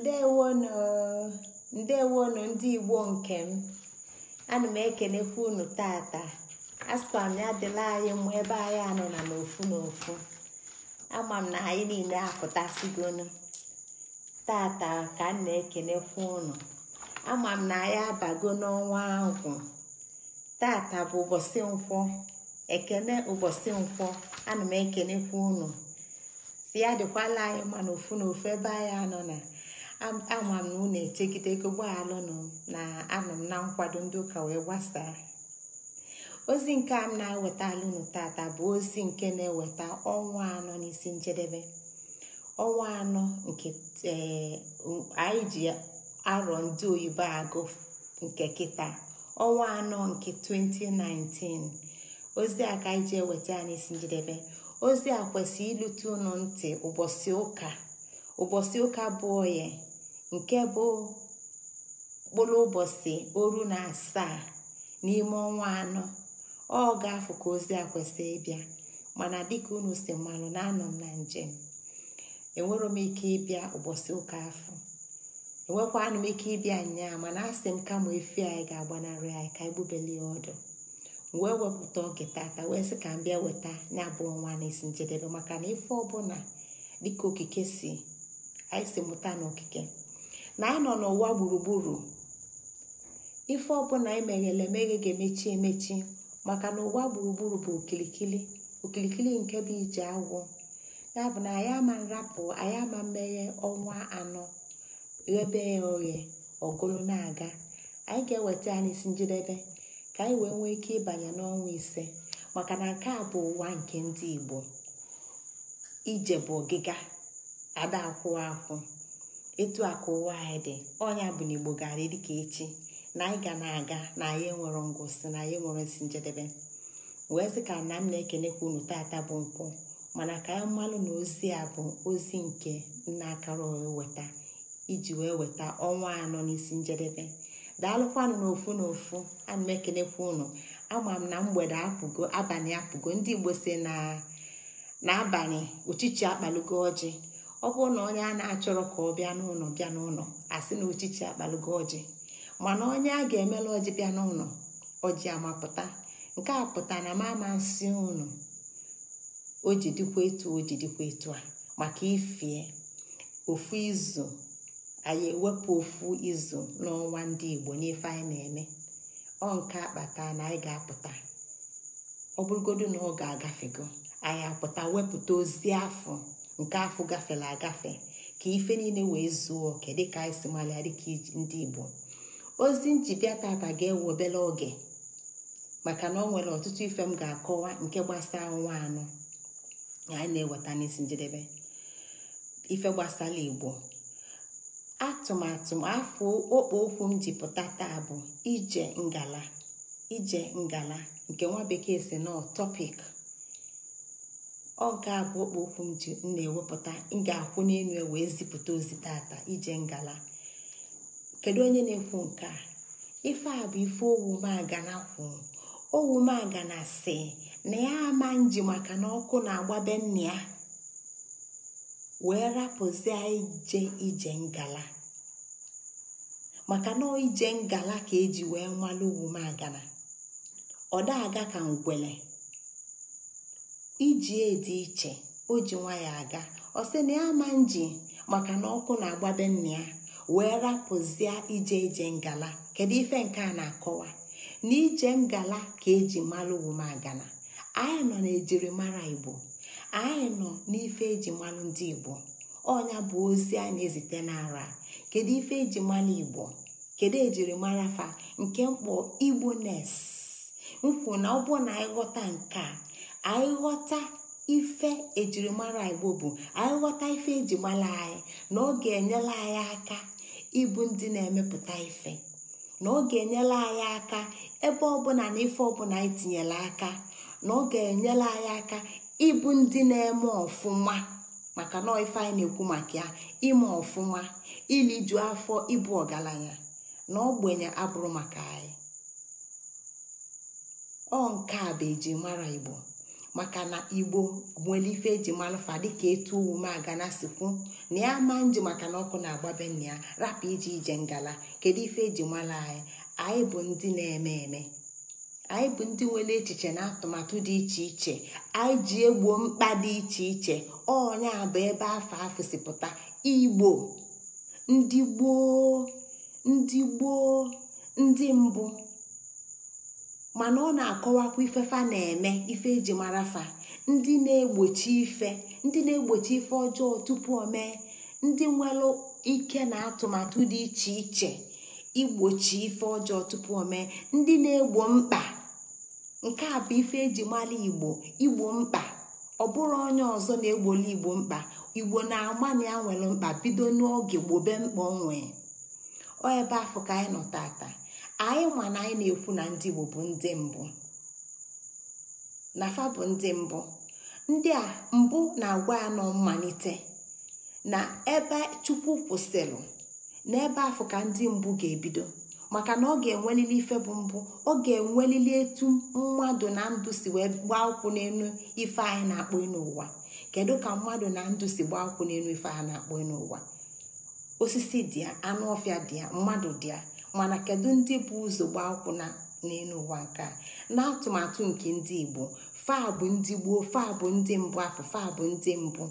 ndewonu ndewonu ndị igbo nke m ana m ekelekwa unu tata asịkwa m ya dịla anyị mụ ebe anyị anọ na n'ofu n'ofu ama m na anyị niile apụtasịgonu tata ka m na-ekelekwa unu ama m na anyị abago n'ọnwa ahụ tata bụ ụbọchị nkwọ ekene ụbọchị nkwọ ana m ekelekwa unu si ya dịkwala anyị ma n'ofu n'ofu ebe anyị anọ na ama m na unu echegide ego alụm na anọ m na nkwado ndị ụka wee gbasaa ozi nke a na eweta alụnụ tata bụ ozi nke na-eweta ọnwa anọ n'isi njedebe ọnwa anọ nke eh, anyị ji arọ ndị oyibo agụ nke kịta ọnwa anọ nke 2019 ozi a ka anyị eweta ya n'isi njedebe ozi a kwesịrị ilute unu ntị ụbọchị ụka ụbọchị ụka bụ oye nke bụ mkpụrụ ụbọchị oru na asaa n'ime ọnwa anọ ọ ga-afụ ka ozi a kwesịrị ịbịa mana dịka unu si mmanụ na anọ m na njem enwero m ike ịbịa ụbọchị ụka afọ enwekwanụ m ike ịbịa nyaa mana asị m kama efi anyị ga-agbanarị anyị ka anyị gbubeli ya ọdụ wee wepụta oge tata wee sị ka m bịa weta ya bụ ọnwa na-esi njedebe maka na ife ọbụla dịka okike si anyị si mụta n'okike na nọ n'ụwa gburugburu ife ọbụla anyị e meghele emeghe ga-emechi emechi maka na ụwa gburugburu bụ okilikili okilikili nke bụ ije agwụ ya bụ na anyị ama nrapụ anyị ama mmeghe ọnwa anọ ghebe ya oghe ọgụlụ na-aga anyị ga-eweta ya n'isi njedebe ka anyị wee nwee ike ịbanye n'ọnwa ise maka na nke a bụ ụwa nke ndị Igbo ije bụ ọgịga ada akwụ akwụ etu a ka ụwa anyị dị ọnya bụ na igbo gaara dịka echi na anyị ga na-aga na anyị nwere ngụsị na anyị nwere nsi njedebe wee sị ka nna m na-ekenekwa unu tata bụ nkwụ mana ka anyị mmanụ na ozi a bụ ozi nke nna akara weta iji wee weta ọnwa anọ n'isi njedebe daalụkwanụ n'ofu n'ofu ana m ekenekwa unu ama m na mgbede apụgo abalị apụgo ndị igbo si na abalị uchichi akpalugo ọjị ọ bụrụ na onye a na-achọrọ ka ọ bịa n'ụlọ bịa n'ụlọ asị na ochichi akpalụgo ọjị mana onye a ga-emela ọjị bịa n'ụlọ ọjị amapụta nke a pụta na mama nsị unu o ji dịkwa etu o ji dịkwa etu a maka ifie ofu izu anyị ewepụ ofu izu n'ọnwa ndị igbo n'ife anyị na-eme ọ nke akpata na anyị ga-apụta ọ bụrụgodu na ọ ga-agafego anyị apụta wepụta ozi afọ nke afọ gafela agafe ka ife niile wee zuo oke dịka anyị e si malịa dịka ndị igbo ozi njibịa tata ga-ewe obere oge maka na ọ nwere ọtụtụ ife m ga-akọwa nke gbasaa nwa anụ anyị na-eweta n'isi njedebe ife gbasara igbo atụmatụ afọ okpo okwu m jipụta taa bụ ije ngala ije ngala nke nwa bekee si nọ tọpik ọ ga-abụ ọkpa ji na-ewepụta ịga ga-akwụ n'elu e wee zipụta ozi tata ije ngala kedu onye na-ekwu nke a ife a bụ ife owumagana kwu owumagana si na ya ama nji maka na ọkụ na-agbabe nna ya wee rapụzie ije ije ngala maka na ije ngala ka eji wee malụ owumagana ọ da aga ka ngwele iji edi iche o ji nwa aga ọ na ya ama nji maka na ọkụ na-agbabe nna ya wee rapụzie ije ije ngala kedu ife nke a na-akọwa na ije ngala ka eji mara owomagana anyị nọ na ejirimara igbo anyị nọ n'ife eji malụ ndị igbo ọnya bụ ozi a na-ezite n'ara kedu ife eji malụ igbo kedu ejirimara fa nke mkpọ igbo nes nkwụ na ọ bụ na ịghọta nke a anyị ghọta ife ejirimara igbo bụ anyị ghọta ife ejimara anyị na ọ ga-enyela anyị aka ịbụ ndị na-emepụta ife na ọ ga-enyela anyị aka ebe ọbụla na ife ọbụla anyị tinyere aka na ọ ga-enyela anyị aka ịbụ ndị na-eme ọfụma maka na ife anyị na-ekwu maka ya ime ọfụma ju afọ ịbụ ọgaranya na ogbenye abụrụ maka anyị ọ nke a bụ ejirimara igbo maka na igbo nwere ife eji malụfa dịka etu ume agana sikwu na ya ma nji maka na ọkụ na-agbabe nna ya rapụ ije ije ngala kedu ife eji mara anyị anyị bụ ndị na-eme eme anyị bụ ndị nwere echiche na atụmatụ dị iche iche anyị ji egbuo mkpa dị iche iche ọnya bụ ebe afọ afọ igbo ndị gboo ndị gboo ndị mbụ mana ọ na-akọwakwa ifefa na-eme ife eji mara fa ndị na-egbochi ife ndị na-egbochi ife ọjọọ tupu o mee ndị nwere ike na atụmatụ dị iche iche igbochi ife ọjọọ tupu o mee ndị na-egbo mkpa nke a bụ ife eji mara igbo igbo mkpa ọ bụrụ onye ọzọ na-egboli igbo mkpa igbo na-agbana ya nwere mkpa bido n'oge gbobe mkpa onwe ọ ebe afọ ka anyị nọ tata anyị nwa na anyị na-ekwu na ndị igbo bụ ndị mbụ na fa bụ ndị mbụ ndị a mbụ na-agwa ya nọ mmalite na ebe chukwu kwụsịrị na ebe afọ ka ndị mbụ ga-ebido maka na ọ ga-enwelili ife bụ mbụ ọ ga-enwelili etu mmadụ na ndụ si wee gbaa ụkwụ n'elu ife anyị na-akpọ elu kedu ka mmadụ na ndụ si gbaa ụkwụ n'elu ife anyị na-akpọ n'ụwa osisi dị ya anụ ọfịa dị ya mmadụ dị ya mana kedu ndị bụ ụzọ gba akwụna n'elu ụwa nke n'atụmatụ nke ndị igbo faa bụ ndị gboo faa bụ ndị mbụ apụ faa bụ ndị mbụ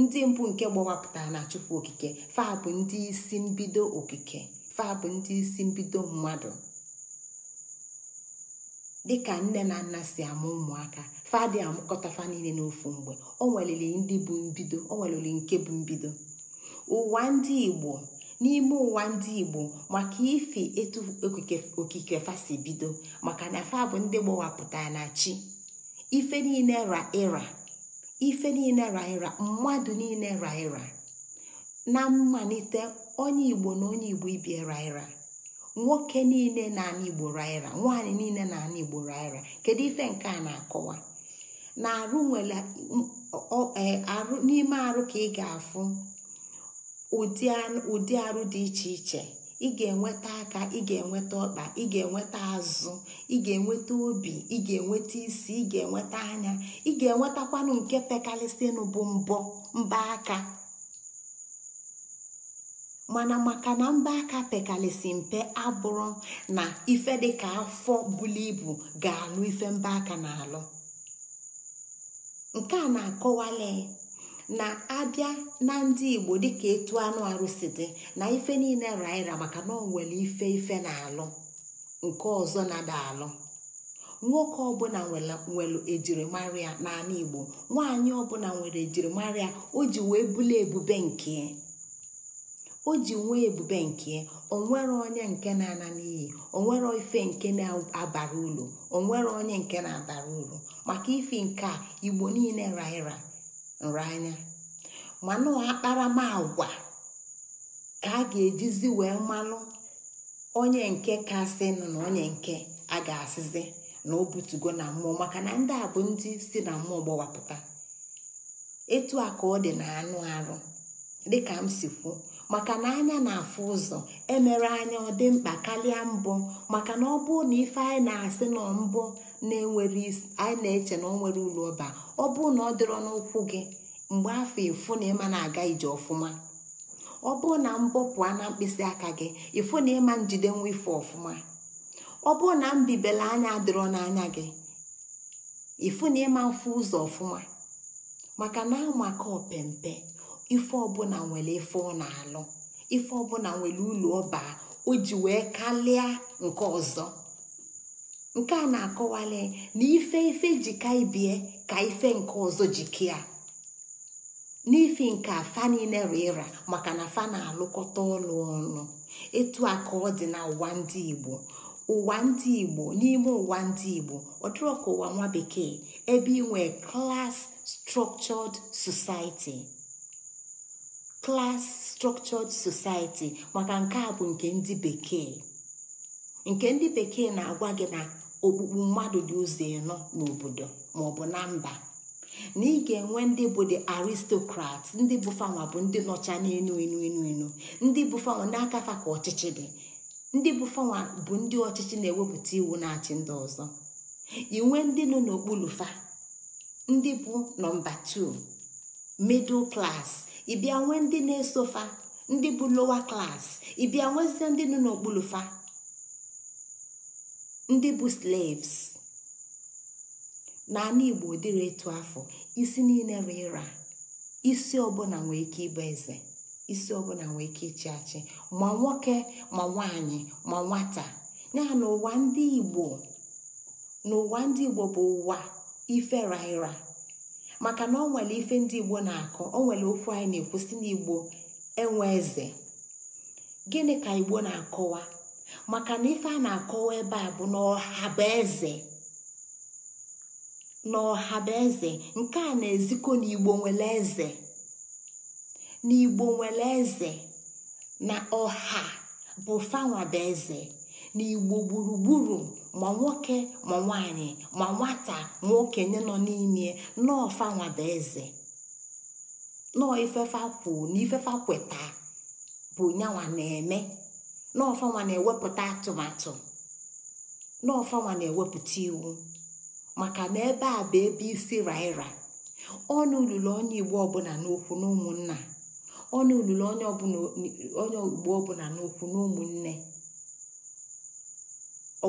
ndị mbụ nke gbawapụtara na chukwu okike faa bụ ndị isi mbido okike faa bụ ndị isi mbido mmadụ dịka nne na nna si amụ ụmụaka dị amụkọta fa niile n'ofu mgbe o nweliri ndị bụ mbido o nweliri nke bụ mbido ụwa ndị igbo n'ime ụwa ndị igbo maka ife etu okike fasi bido maka na fa bụ ndị gbawapụtara na chi ife niile ra ịra ife niile ra ịra mmadụ niile ra ịra na mmalite onye igbo na onye igbo ibi ra ịra nwoke niile na-ana igbo ra ịra nwaanyị niile na-ana igbo ra ịra kedu ife nke na-akọwa na arụ nwere e, n'ime arụ ka ị ga-afụ ụdị arụ dị iche iche ị ga-enweta aka ị ga-enweta ọkpa ị ga-enweta azụ ị ga-enweta obi ị ga-enweta isi ị ga-enweta anya ị ga-enwetakwanụ nke pekalisi bụ mbọ mba aka mana maka na mba aka pekalisi mpe abụrụ na ife dị ka afọ bulu ibu ga-alụ ife mba aka na-alụ nke a na-akọwale na-abịa na ndị igbo dịka etu anụ arụsị dị na ife niile raira maka na ọ nwere ife ife na-alụ nke ọzọ na-ada alụ nwoke ọbụla nwere ejirimara n'ala igbo nwaanyị ọbụla nwere ejirimara o ji wee ebube nke o ji nwee ebube nke onwere onye nke na-ana n'iyi onwere ife nke na-abara uru onwere onye nke na-abara uru maka ife nke a igbo niile raira anya mana akparamagwa ka a ga-ejizi wee mmanụ onye nke kasịnụ na onye nke a ga-asịzi na o butugo na mmụọ maka na ndị a bụ ndị si na mmụọ gbawapụta etu a ka ọ dị na anụ arụ dịka m si kwuo maka na anya na-afụ ụzọ emere anya ọ dị mkpa karịa mbọ maka na ọ bụrụ na ife anyị na-asị na mbụ na-enwere anyị na-eche na ọ nwere ụlọ ọba ọ bụrụ na ọ dịrọ n'ụkwụ gị mgbe afọ efu na ịma na-aga ije ọfụma ọ bụrụ na mbọ pụọ na mkpịsị aka gị ịfụ na ịma njide nwa ife ọfụma ọ bụrụ na anya adịrọ n'anya gị ịfụ na ịma mfụ ụzọ ọfụma maka na amaka opempe ife ọbụla nwere ife ọ na-alụ ife ọbụla nwere ụlọ ọba o ji wee kalịa nke ọzọ nke a na-akọwale na ife ife ji ibie ka ife nke ọzọ jikia n'ifi nke afa niile rụ maka na fa na-alụkọta ọlụ ọnụ etu a ka ọ dị na ụwa ndị igbo ụwa ndị igbo n'ime ụwa ndị igbo ọ dịrọ ụwa nwa bekee ebe inwe klas structured society maka nke a bụ nke ndị bekee nke ndị bekee na-agwa gị na okpukpu mmadụ dị ụzọ ịnọ n'obodo maọbụ na mba na ị ga-enwe ndị bụ the aristocrat ndị bụ bụ ndị nọcha n'enu enu enu enu ndị bụ fanwa n'aka fa ka ọchịchị dị ndị bụ bụ ndị ọchịchị na-ewepụta iwu na-achị ndị ọzọ inwe ndị nọ n'okpuru fa ndị bụ nọmba 2 middle class ịbịa nwee ndị na-eso fa ndị bụ lower class ịbịa nwezie ndị nọ n'okpuru fa ndị bụ slaves na igbo dịrị etu afọ isi niile ịra isi ọbụla nwee ike ịbụ eze isi ọbụla nwee ike ịchị achị ma nwoke ma nwanyị ma nwata ya n'ụwa ndị igbo n'ụwa ndị igbo bụ ụwa ife raịra maka na ọ nwere ife ndị igbo na-akọ ọ nwere okwu anyị na-ekwusi n'igbo enwe eze gịnị ka igbo na-akọwa maka na ife a na-akọwa ebe a bụ na ọha bụ eze n'ọha bụ eze nke a na eziko n'igbo nwere eze n'igbo nwere eze na ọha bụ fanwa eze n'igbo gburugburu ma nwoke ma nwanyị ma nwata ma okenye nọ n'ime nọọ fanwa eze nọọ ifefa na kweta bụ nyanwa na-eme nọfanwa na-ewepụta atụmatụ nọọ na-ewepụta iwu maka na ebe a bụ ebe isi raịra ọnụ olulu onye igbo ọbụla n'okwu na ụmụnna ọnụ olulu onye igbo ọbụla n'okwu na ụmụnne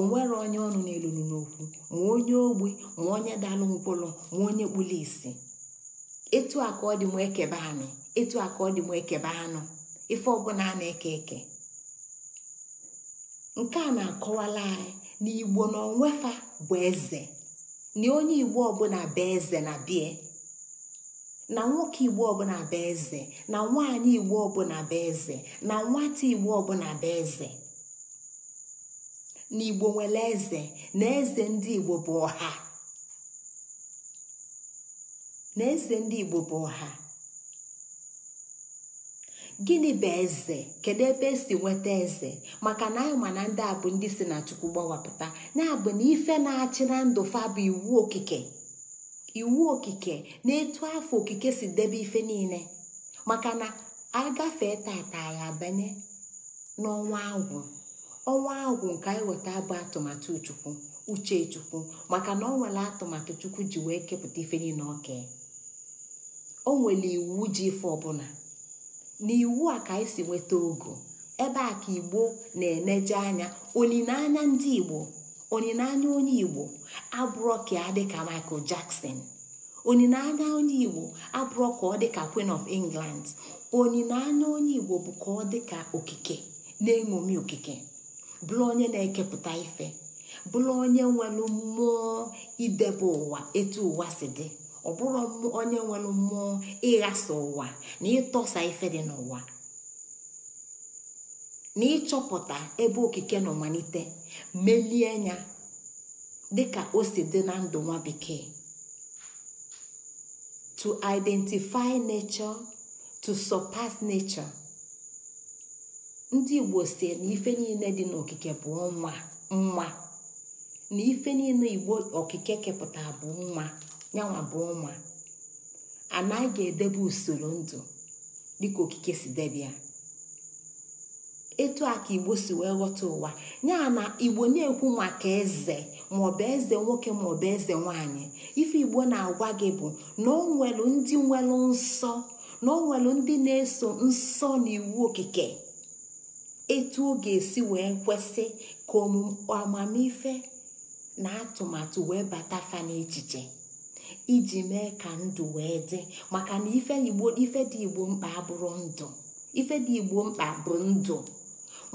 nwere onye ọnụ na n'okwu ma onye ogbi ma onye dalụ ngwụlụ ma onye kpụrụ isi etu a ka ọ dị m ekebe anyị etu a ka ọ dị m ekebe anụ ife ọbụla a na-eke eke nke a na-akọwala anyị n'igbo na onwefa bụ eze na onye igbo ọbụla bụ eze na bie na nwoke igbo ọbụla bụ eze na nwaanyị igbo ọbụla bụ eze na nwata igbo ọbụla bụ eze na igbo nwere eze na eze ndị igbo bụ ọha na eze ndị igbo bụ ọha gịnị bụ eze kedu ebe esi nweta eze maka na anyị ma na ndị a bụ ndị si na chukwu gbawapụta ya bụ na ife na-achị na ndụ fa bụ iwu okike iwu okike na etu afọ okike si debe ife niile maka na agafee tata anyị abanye n'ọnwa agwụ ọnwa agwụ nke anyị weta bụ atụmatụ chukwu uche chukwu maka na ọ nwere atụmatụ chukwu ji wee kepụta ife niile oke o nwere iwu ji ife ọbụla n'iwu a ka anyị si nweta ogo ebe a ka igbo na-eneje anya olileanya ndị igbo olileanya onye igbo abụrọ ka dịka michael jackson olileanya onye igbo abụrọ ka ọ dịka queen of england olileanya onye igbo bụ ka ọ dịka okike na-eṅomi okike bụrụ onye na-ekepụta ife bụrụ onye nwere mmụọ idebe ụwa etu ụwa si dị ọ bụrụ onye nwere mmụọ ịghasa ụwa na ịtọsa ife dị n'ụwa na ịchọpụta ebe okike nọ malite melie ya dịka o si dị na ndụ nwa bekee to identify nature to surpass nature ndị igbo si na ife niile dị n'okike bụ nwa nwa na ife niile igbo okike kepụta bụ nwa yanwa bụ ụmụ anaghị ga-edebe usoro ndụ dịka okike si debe etu a ka igbo si wee ghọta ụwa nya na igbo na-ekwu maka eze maọbụ eze nwoke maọbụ eze nwanyị ife igbo na-agwa gị bụ na o nwelu ndị nwelu nsọ na o nwelu ndị na-eso nsọ na iwu okike etu ọ ga-esi wee kwesị ka amamife na atụmatụ wee bata fa n'echiche iji mee ka ndụ wee dị maka na ife igbo dị igbo mkpa bụrụ ndụ ife dị igbo mkpa bụ ndụ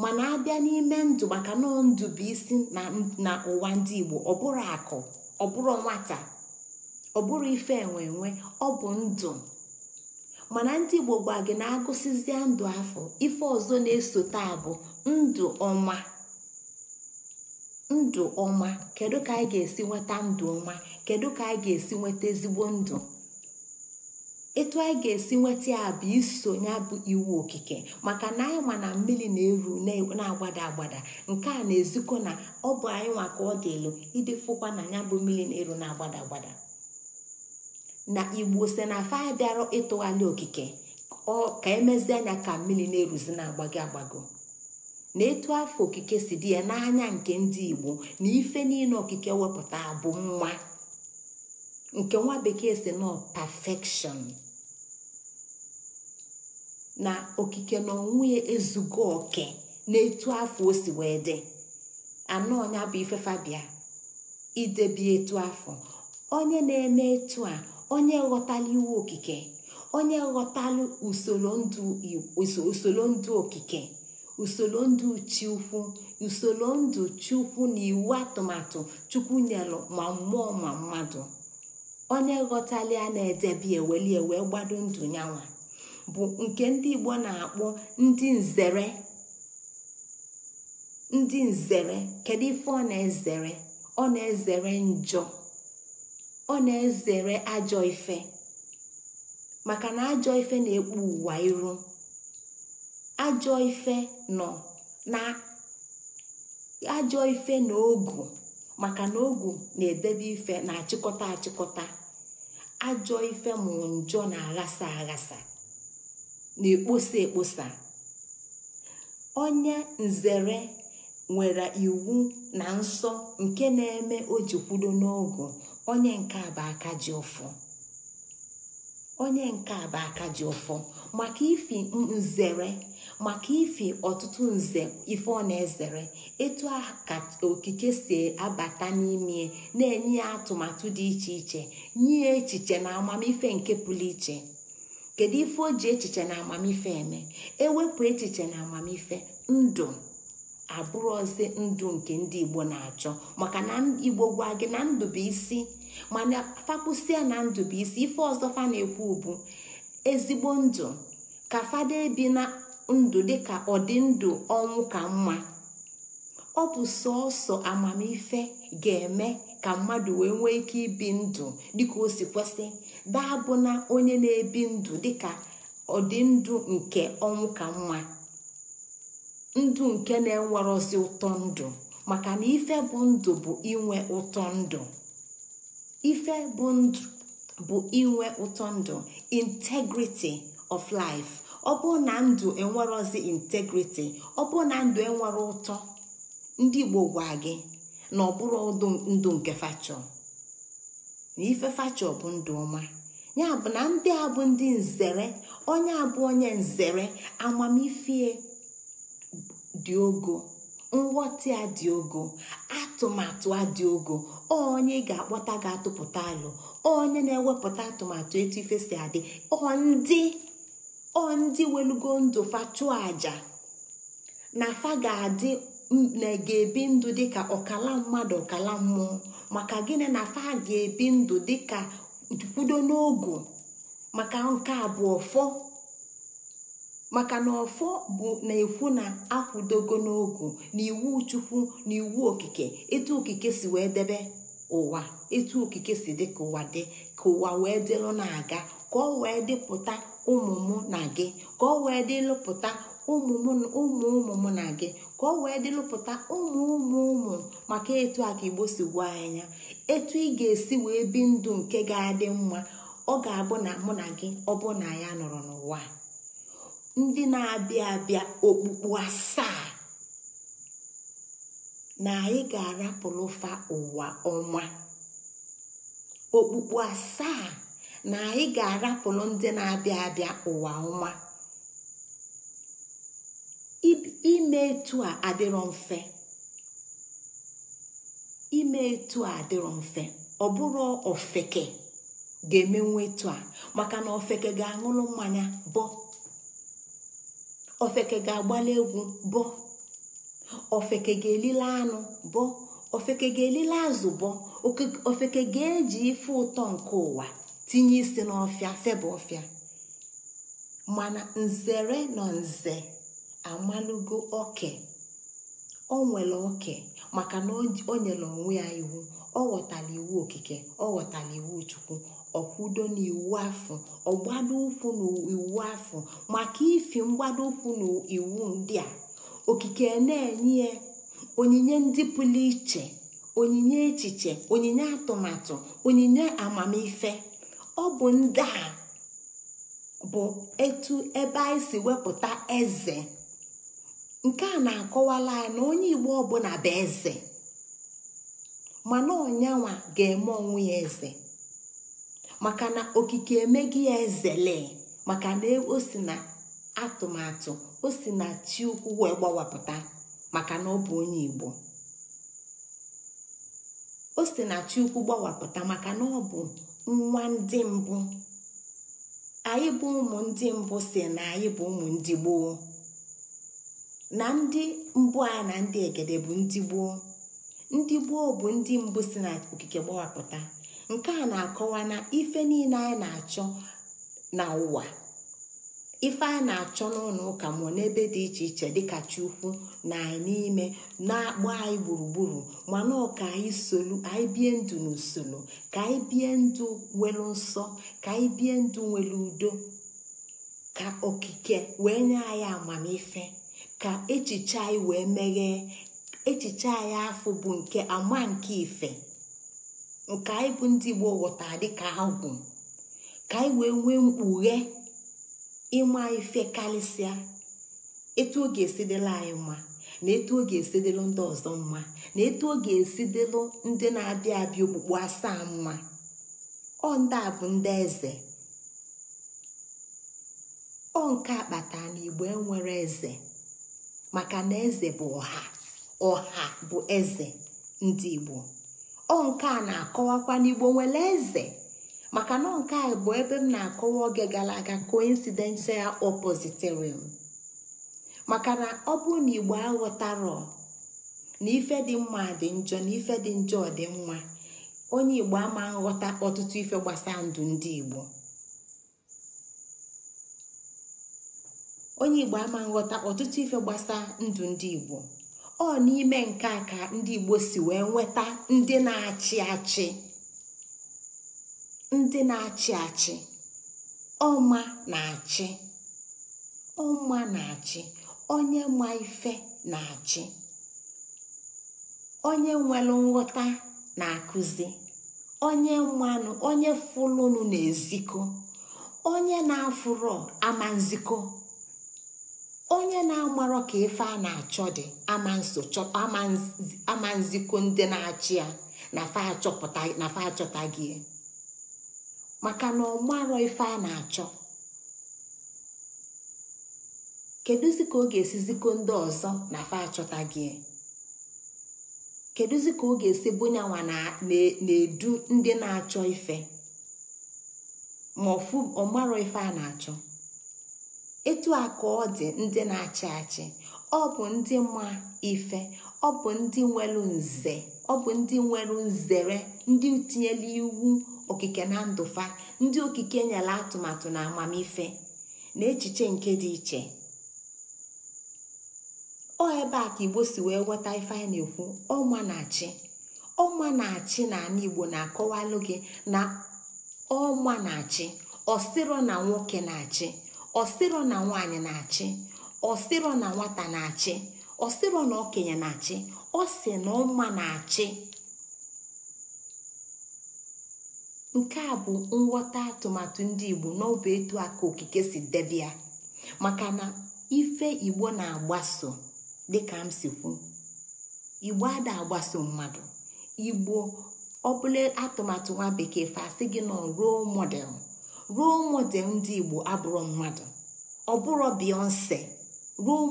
mana abịa n'ime ndụ maka nọ ndụ bụ isi na ụwa ndị igbo ọ bụrụ nwata ọ bụrụ ife enwe enwe ọ bụ ndụ mana ndị igbo gwa gị na agụsizie ndụ afọ ife ọzọ na-esote bụ ndụ ọma ndụ ọma kedu ka anyị ga-esi nweta ndụ ọma kedu ka anyị ga-esi nweta ezigbo ndụ etu anyị ga-esi nweta ya bụ iso ya bụ iwu okike maka na anyị ma na mmiri na-eru na-agbada agbada nke a na-ezikọ na ọ bụ anyị nwa ka ọ dị elu ịdị fụkwa na ya bụ mmiri na-eru na-agbada agbada na igbo se na afa anyị bịara ịtụgharị okike ka emezi anya ka mmiri na-eruzi na-agbago agbago na etu afọ okike si dị ya n'anya nke ndị igbo na ife niile okike wepụta bụ nwa nke nwa bekee si nọ perfection na okike na onwe ya ezugo oke na etu afọ o si wee dị anọ ọnya bụ ife fabia idebi etu afọ onye na-eme etu a onye ghọtala iwu okike onye ghọtalụ usoro ndụ okike usoro ndụ chukwu usoro ndụ chukwu na iwu atụmatụ chukwu nyelụ ma mmụọ ma mmadụ onye ghọtali a na-edebe eweli ewe gbado ndụ nyanwa bụ nke ndị igbo na-akpọ ndị nzere ndị nzere kedu ife ọ na-ezere ọ na-ezere njọ ọ na-ezere ajọ ife maka na ajọ ife na-ekpu ụwa iru ajọ ife nọ na ajọ ife na ogu maka na ogu na-edebe ife na-achịkọta achịkọta ajọ ife mụ njọ na-aghasa aghasa na-ekposa ekposa onye nzere nwere iwu na nsọ nke na-eme o ji kwudo n'ogu onye nke a bụ aka ji ụfọ onye nke a bụ ji ụfọ maka ifi nzere maka ife ọtụtụ nze ife ọ na-ezere etu a ka okike si abata n'ime na-enye ya atụmatụ dị iche iche nye echiche na amamife nke pụrụ iche kedu ife o ji echiche na amamife eme ewepụ echiche na amamife ndụ abụrụ ozi ndụ nke ndị igbo na-achọ maka na igbo gwa gị na ndụ bụ isi mana fakwụsịa na ndụ bụ isi ife ọzọ fa na-ekwu bụ ezigbo ndụ ka fada ebi na ndụ dịka ọdịndụ ọnwụ ka mma ọ bụ sọọsọ amamife ga-eme ka mmadụ wee nwee ike ibi ndụ dịka o si kwesị daa bụ na onye na-ebi ndụ dịka ọdịndụ nke ọnwụ ka mma ndụ nke na-enwerozi ụtọ ndụ maka na ife bụ ndụ bụ inwe ụtọ ndụ integrity of life ọ bụrụ na ndụ enwerozi integriti ọ bụrụ na ndụ enwere ụtọ ndị igbo gwa gị na ọ bụrụ ndụ nke fachọ na ife fachọ bụ ndụ ọma ya bụ na ndị a bụ ndị nzere onye abụ onye nzere amamifie dị ogo nghọta a dị ogo atụmatụ a dị ogo onye ga-akpọta ga-atụpụta alụ onye na-ewepụta atụmatụ etu ife si adị ọ ndị ọ ndị welugo ndụ fa chụọ aja na fa ga-adị ga-ebi ndụ dịka ọkala mmadụ ọkala mmụọ maka gịnị na fa ga-ebi ndụ dịka kwudo n'ogu maka nke bụ ọfọ maka na ọfọ bụ na-ekwu na akwụdogo n'ogu na iwu chukwu na iwu okike etu okike si wee debe ụwa etu okike si dị ka ụwa dị ka ụwa wee dịlụ na-aga ka ọ wee dịpụta ụmụ mụ na gị ka ọ wee dị lụpụta ụmụ ụmụ m na gị ka ọ wee dị lụpụta ụmụ ụmụ ụmụ maka etu a ka igbo si gwa anya etu ị ga-esi wee bi ndụ nke ga-adị mma ọ ga-abụ na mụ na gị ọ bụ na ya nọrọ n'ụwa ndị na-abịa abịa okpukpu asaa na anyị ga-arapụlụfa ụwa ọma okpukpu asaa na anyị ga-arapụrụ ndị na-abịa abịa ụwa ọma ime etu a adịrọ mfe etu a adịrọ mfe ọ bụrụ ofeke ga-emenwu etu maka na ofeke ga-aṅụrụ mmanya bọ ofeke ga-agbali egwu bọ ofeke ga-elile anụ bọ ofeke ga-elile azụ bọ ofeke ga-eji ife ụtọ nke ụwa tinye isi n'ọfịa febụ ọfịa mana nzere na nze amalụgo oke o nwere oke maka na o nyere onwe ya iwu ọ ghọtara iwu okike ọ ghọtara iwu chukwu ọkwudo na iwu afọ ọgbado ụkwụ na iwu afọ maka ifi mgbado ụkwụ na iwu ndị a okike na-enye ya onyinye ndị pụrụ iche onyinye echiche onyinye atụmatụ onyinye amamife ọ bụ ndị a bụ etu ebe anyị si wepụta eze nke a na-akọwala ya na onye igbo ọbụla bụ eze mana ọnyanwa ga-eme onwe ya eze maka na okike emeghị ya ezele maka na o si na atụmatụ o si na chiukwu gbawapụta maka na ọ bụ onye igbo o si na chiukwu gbawapụta maka na ọ bụ nwa ndị mbụ anyị bụ ụmụ ndị mbụ si na anyị bụ ụmụ ndị gboo na ndị mbụ anyị na ndị egede bụ ndị gboo ndị gboo bụ ndị mbụ si na okike gbawapụta nke a na-akọwa na ife niile anyị na-achọ n'ụwa. ife a na-achọ n'ụlọ ụka mụọ n'ebe dị iche iche dịka chukwu na anyị n'ime na akpọ anyị gburugburu mana ọka anyị solu anyị bie ndụ n'usoro ka anyị bie ndụ nwere nsọ ka anyị bie ndụ nwere udo ka okike wee nye anyị amamife ka echiche anyị wee meghee echiche anyị afọ bụ nke ama nke ife nke anyị bụ ndị Igbo ghọtara dịka agwụ ka anyị wee nwee mkpughe ịma ife karịsịa etu ọ ga-esi anyị mma na etu ọ ga-esi ndị ọzọ mma na etu ọ ga-esi ndị na-abịa abịa okpukpu asaa mma ọ ndị a bụ ndị eze ọ nke akpata na igbo enwere eze maka na eze bụ ọha ọha bụ eze ndị igbo ọ nke a na-akọwakwa n'igbo nwere eze maka na nke a bụ ebe m na-akọwa oge gara aga coincidental oppositorium maka na ọ bụ na igbo aghọtarọ na ife dị mma dị njọ na ife dị njọ dị mma onye igbo ama nghọta ọtụtụ ife ndụ ndị igbo onye igbo ama nghọta ọtụtụ ife gbasaa ndụ ndị igbo ọ n'ime nke a ka ndị igbo si wee nweta ndị na-achị achị ndị na-achị achị ọma na-achị ọma na-achị onye ma ife na-achị onye nwere nghọta na-akụzi onye mmanụ onye fụlụnụ na-ezikọ onye na-afụrọ ama nziko, onye na-amarọ ka ife a na-achọ dị ama nziko ndị na-achị ya na fa achọpụta gị maka na ọmarọ ife a na-achọ kedụzi ka ọ ga-esi zikọ ndị ọzọ na fa achọta gị kedụzi ka ọ ga-esi bunyanwa na-edu ndị na-achọ ife ma ọfụ ọmarọ ife a na-achọ etu a ka ọ dị ndị na-achị achị ọ bụ ndị ma ife ọ bụ ndị nwere nze ọ bụ ndị nwere nzere ndị tinyela iwu okike na ndụfa ndị okike nyere atụmatụ na amamife na echiche nke dị iche ọ ebe a ka igbo si wee nweta ife anyị na-ekwu ọma na-achị ọma na-achị na ana igbo na-akọwalụ gị na ọma na-achị ọsịrọ na nwoke na-achị ọsịrọ na nwaanyị na-achị ọsịrọ na nwata na-achị ọsịrọ na okenye na-achị ọ sị na ọma na-achị nke a bụ nghọta atụmatụ ndị igbo n'ọbụ etu aka okike si debia maka na ife igbo na-agbaso dịka m si kwu igbo ada agbaso mmadụ igbo ọbụla atụmatụ nwa bekee fasị gị nọ ruo model ruo model ndị igbo abụrụ mmadụ ọ beyonce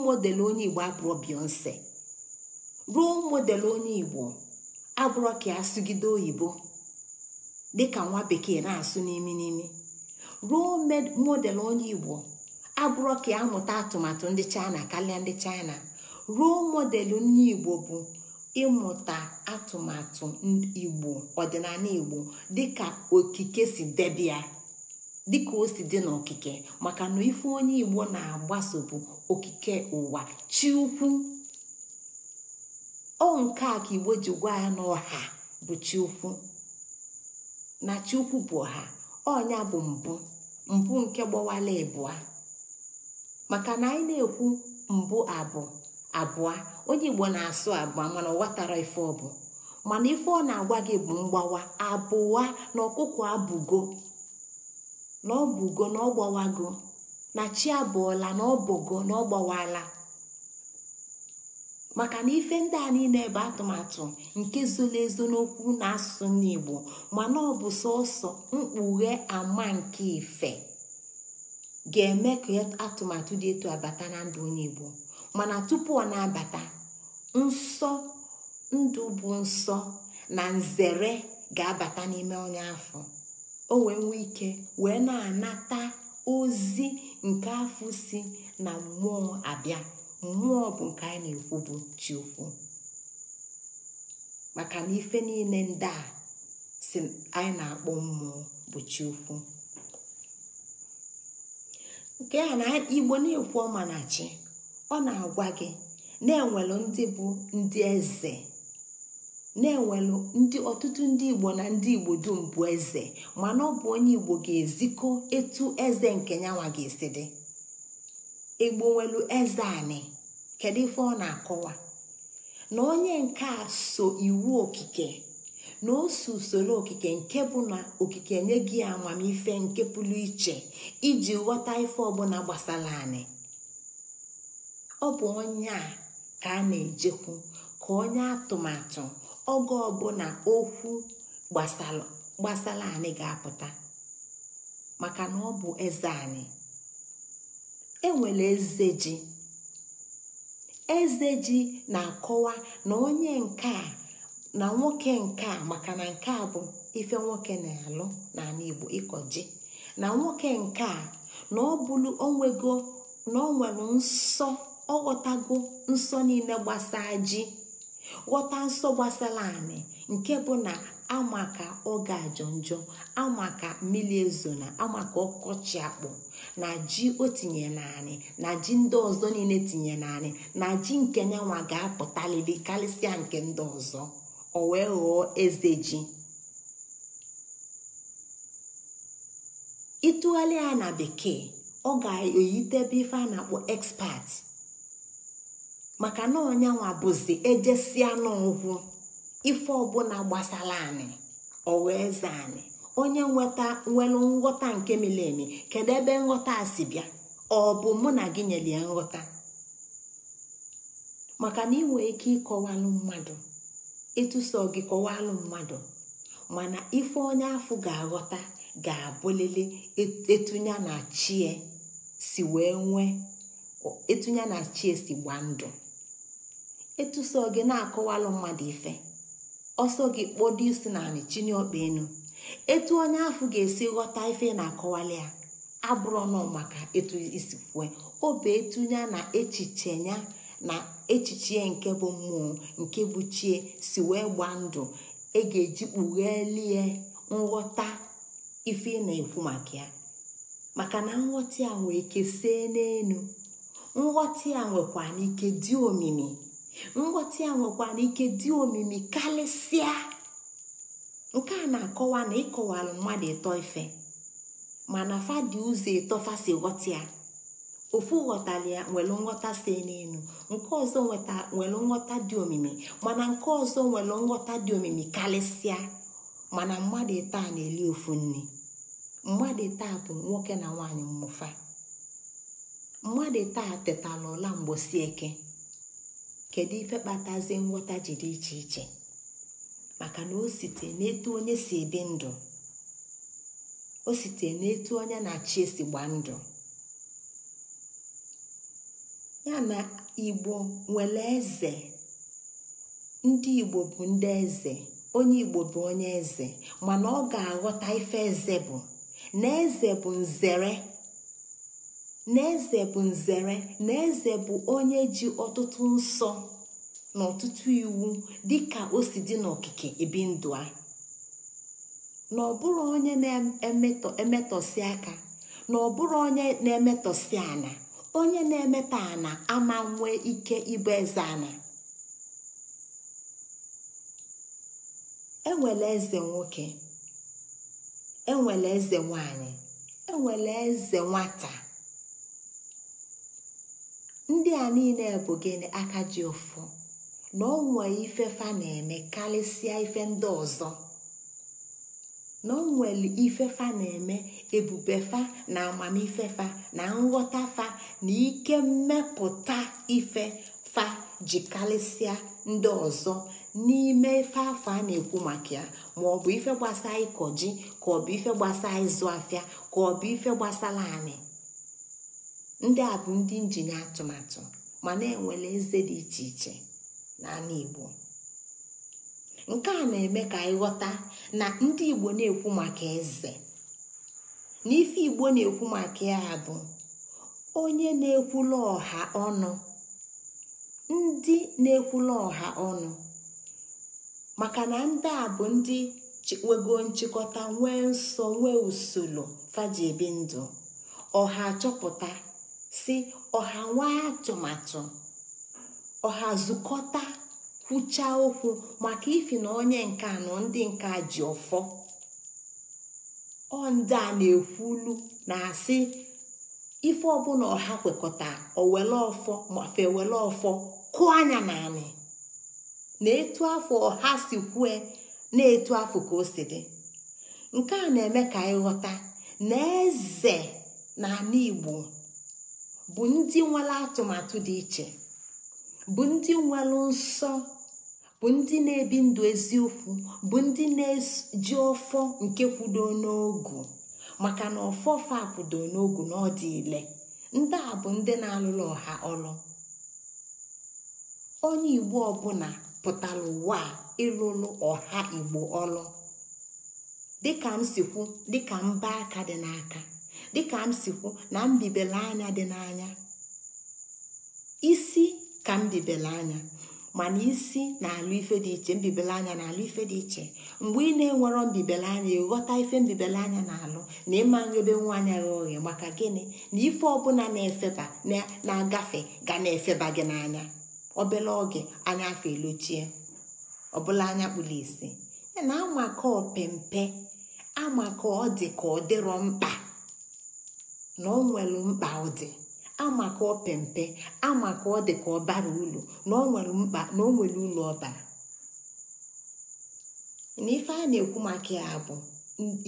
model onye igbo abụrụ beyonce role model onye igbo agwụrọ ka asụgide oyibo dịka nwa bekee na-asụ n'imi n'imi role model onye igbo abụrọ ka amụta atụmatụ ndị china karịa ndị china role model onye igbo bụ ịmụta atụmatụ igbo ọdịnala igbo dịka okike si debia dịka o si dị n'okike maka na ife onye igbo na-agbaso bụ okike ụwa chi ukwu ọ nke a ka igbo ji gwa ya na ọha bụ chukwu na chukwu bụ ọha ọnya bụ mbụ mbụ nke gbawala ịbụa maka na anyị na-ekwu mbụ abụ abụọ onye igbo na-asụ abụọ mana ọ ghọtara ife ọ bụ mana ife ọ na-agwa gị bụ mgbawa abụọ na ọkụkọ abụgo na ọbụgo na ọgbawago na chi abụọla na ọbụgo na gbawala maka na ife ndị a niile bụ atụmatụ nke zoro ezo n'okwu na asụsụ n'igbo mana ọ bụ sọsọ mkpughe ama nke ife ga-eme ka atụmatụ dị etu abata na ndụ onye igbo mana tupu ọ na-abata nsọ ndụ bụ nsọ na nzere ga-abata n'ime onye afọ o wee ike wee na-anata ozi nke afọ si na mmụọ abịa mmụọ bụ nke anyị na-ekwu bụ chi maka na ife niile ndị a si anyị na-akpọ mmụọ bụ chi nke a na igbo na-ekwu ọma na chi ọ na-agwa gị na-enwelu ndị bụ ndị eze na-enwelu ndị ọtụtụ ndị igbo na ndị igbo dum bụ eze mana ọ bụ onye igbo ga-ezikọ etu eze nke nyanwa ga-esi dị egbowelu eze ezeanị kedu ife ọ na-akọwa na onye nke a so iwu okike na oso usoro okike nke bụ na okike nye gị amamife nke pụrụ iche iji ghọta ife ọbụla gbasara ọ bụ onye a ka a na-ejekwu ka onye atụmatụ oge ọbụla okwu gbasara anị ga-apụta maka na ọ bụ eze enwere eze ji eze ji na-akọwa na onye nke a na nwoke nke a maka na nke a bụ ife nwoke na-alụ n'ala igbo ịkọ ji na nwoke nke a na ọ bụrụ onwego na ọ nwere nsọ ọ ghọtago nsọ niile gbasaa ji ghọta nsọ gbasara anị nke bụ na ama ka oge ajọ njọ ama ka mmiri ezona na ama ka ọkọchị akpụ na ji o tinye naanị na ji ndị ọzọ niile tinye naanị na ji nke nyanwa ga-apụtaliri karịsịa nke ndị ọzọ o wee ghọọ eze ji ịtụgharị ya na bekee ọ ga-eyitebe ife a na-akpọ maka na ọnyanwa bụzi ejesia n'ọgwụ ife ọbụla gbasara anyị ọ wee zaa anyị onye nweta nwelu nghọta nke mileni kedu ebe nghọta a si bịa ọ bụ mụ na gị nyere ya nghọta maka na ị nwere ike ịkọwalụ mmadụ ịtụso gị kọwalụ mmadụ mana ife onye afọ ga-aghọta ga-abụlele etunya na chie si wee nwee etunya na chie si gbaa ndụ etuso gị na-akọwalụ mmadụ ife ọsọ gị kpọdo isi na anị chinye ọkpa enu etu onye ahụ ga-esi ghọta ife na-akọwali ya abụrụ nọ maka etu isi kwue obe etunya na echiche ya na echiche nke bụ mmụọ nke bụ chie si wee gbaa ndụ ị e ga-eji kpughelie nghọta ife na-ekwu maka ya maka na nghọta ya nwee ike see nghọta ya nwekwa n'ike dị omimi nghọta ya nwekwa ike dị omimi karịsịa nke a na-akọwa na ịkọwara mmadụ ịtọ ife mana fadị ụzọ ịtọfa si ghọta ya ofu ghọtara ya nwere nghọta si n'elu nke ọzọ nwere nghọta dị omimi mana nke ọzọ nwere nghọta dị omimi karịsịa mana mmadụ taa na-eli ofu nne mmadụ taa bụ nwoke na nwaanyị mmụfa mmadụ taa tetala ọla mgbosi eke kedu ife kpatazie nghọta ji dị iche iche maka na o site n'etu onye si ebi ndụ o site n'etu onye na-achị esi gba ndụ ya na igbo nwere eze ndị igbo bụ ndị eze onye igbo bụ onye eze mana ọ ga-aghọta ife eze bụ na eze bụ nzere na bụ nzere na eze bụ onye ji ọtụtụ nsọ na ọtụtụ iwu dịka o si dị n'okike ebi ndụ a na ọbụrụ onye na-emetọsi aka na ọbụrụ onye na-emetọsi ana onye na emeta ana ama nwee ike ịbụ eze ana enwere eze nwoke enwere eze nwanyị enwere eze nwata ndị a niile bụ gịnị aka ji ụfụ na ọ ife fa na-eme karịsịa ife ndị ọzọ na ọ nwere ife fa na-eme ebube fa na amamife fa na nghọta fa na ike mmepụta ife fa ji karịsịa ndị ọzọ n'ime ife afọ a na-ekwu maka ya ma ọ bụ ife gbasara ịkọ ji ka ọ bụ ife gbasara ịzụ afịa ka ọ bụ ife gbasara anị ndị a bụ ndị injinia atụmatụ ma na-enwele eze dị iche iche n'ala igbo nke a na-eme ka anyị ghọta na ndị igbo na-ekwu maka eze na ife igbo na-ekwu maka ya bụ onye na-ekwula ọha ọnụ ndị na-ekwula ọha ọnụ maka na ndị a bụ ndị wego nchịkọta nwee nsọ nwee usoro faji ndụ ọha chọpụta si ọha nwee atụmatụ ọha zukọta kwuchaa okwu maka ifi na onye nke anọ ndị nke ji ọfọ ọ ndị a na-ekwulu na-asị ife ọbụla ọha kwekọta owele ọfọ mafe ewele ọfọ kụọ anya naanị na etu afọ ọha si kwue na etu afọ ka o si dị nke a na-eme ka anyị ghọta na eze na ala igbo bụ ndị nwere atụmatụ dị iche bụ ndị nwere nsọ bụ ndị na-ebi ndụ eziokwu bụ ndị na-eji ọfọ nke kwudo n'ogu maka na ọfọfa akwudo n'ogu na ile ndị a bụ ndị na-alụrụ ọha ọlụ onye igbo ọbụla pụtara ụwa a ịlụrụ ọha igbo ọlụ dịka m si kwu dịka mba aka dị n'aka dịka m si kwu na mbibele anya dị n'anya isi ka mbibele anya mana isi na-alụ ife dị iche mbibele anya na-alụ ife dị iche mgbe ị na enwero mbibele anya ịghọta ife mbibele anya na-alụ na ịma nrebe nwa anya gị oghe maka gịnị na ife ọbụla na-efeba na-agafe ga na-efeba gị n'anya obele oge anya afọ elochie ọbụla anya kpụrụ isi na amaka opempe amaka ọ dị ka ọ dịrọ mkpa na ọ nwere mkpa ọ dị ama ka ọ pempe ama ka ọ dị ka ọ bara ụlọ na ọ nwere mkpa na o nwere ụlọ ọbara na ife a na-ekwu maka ya bụ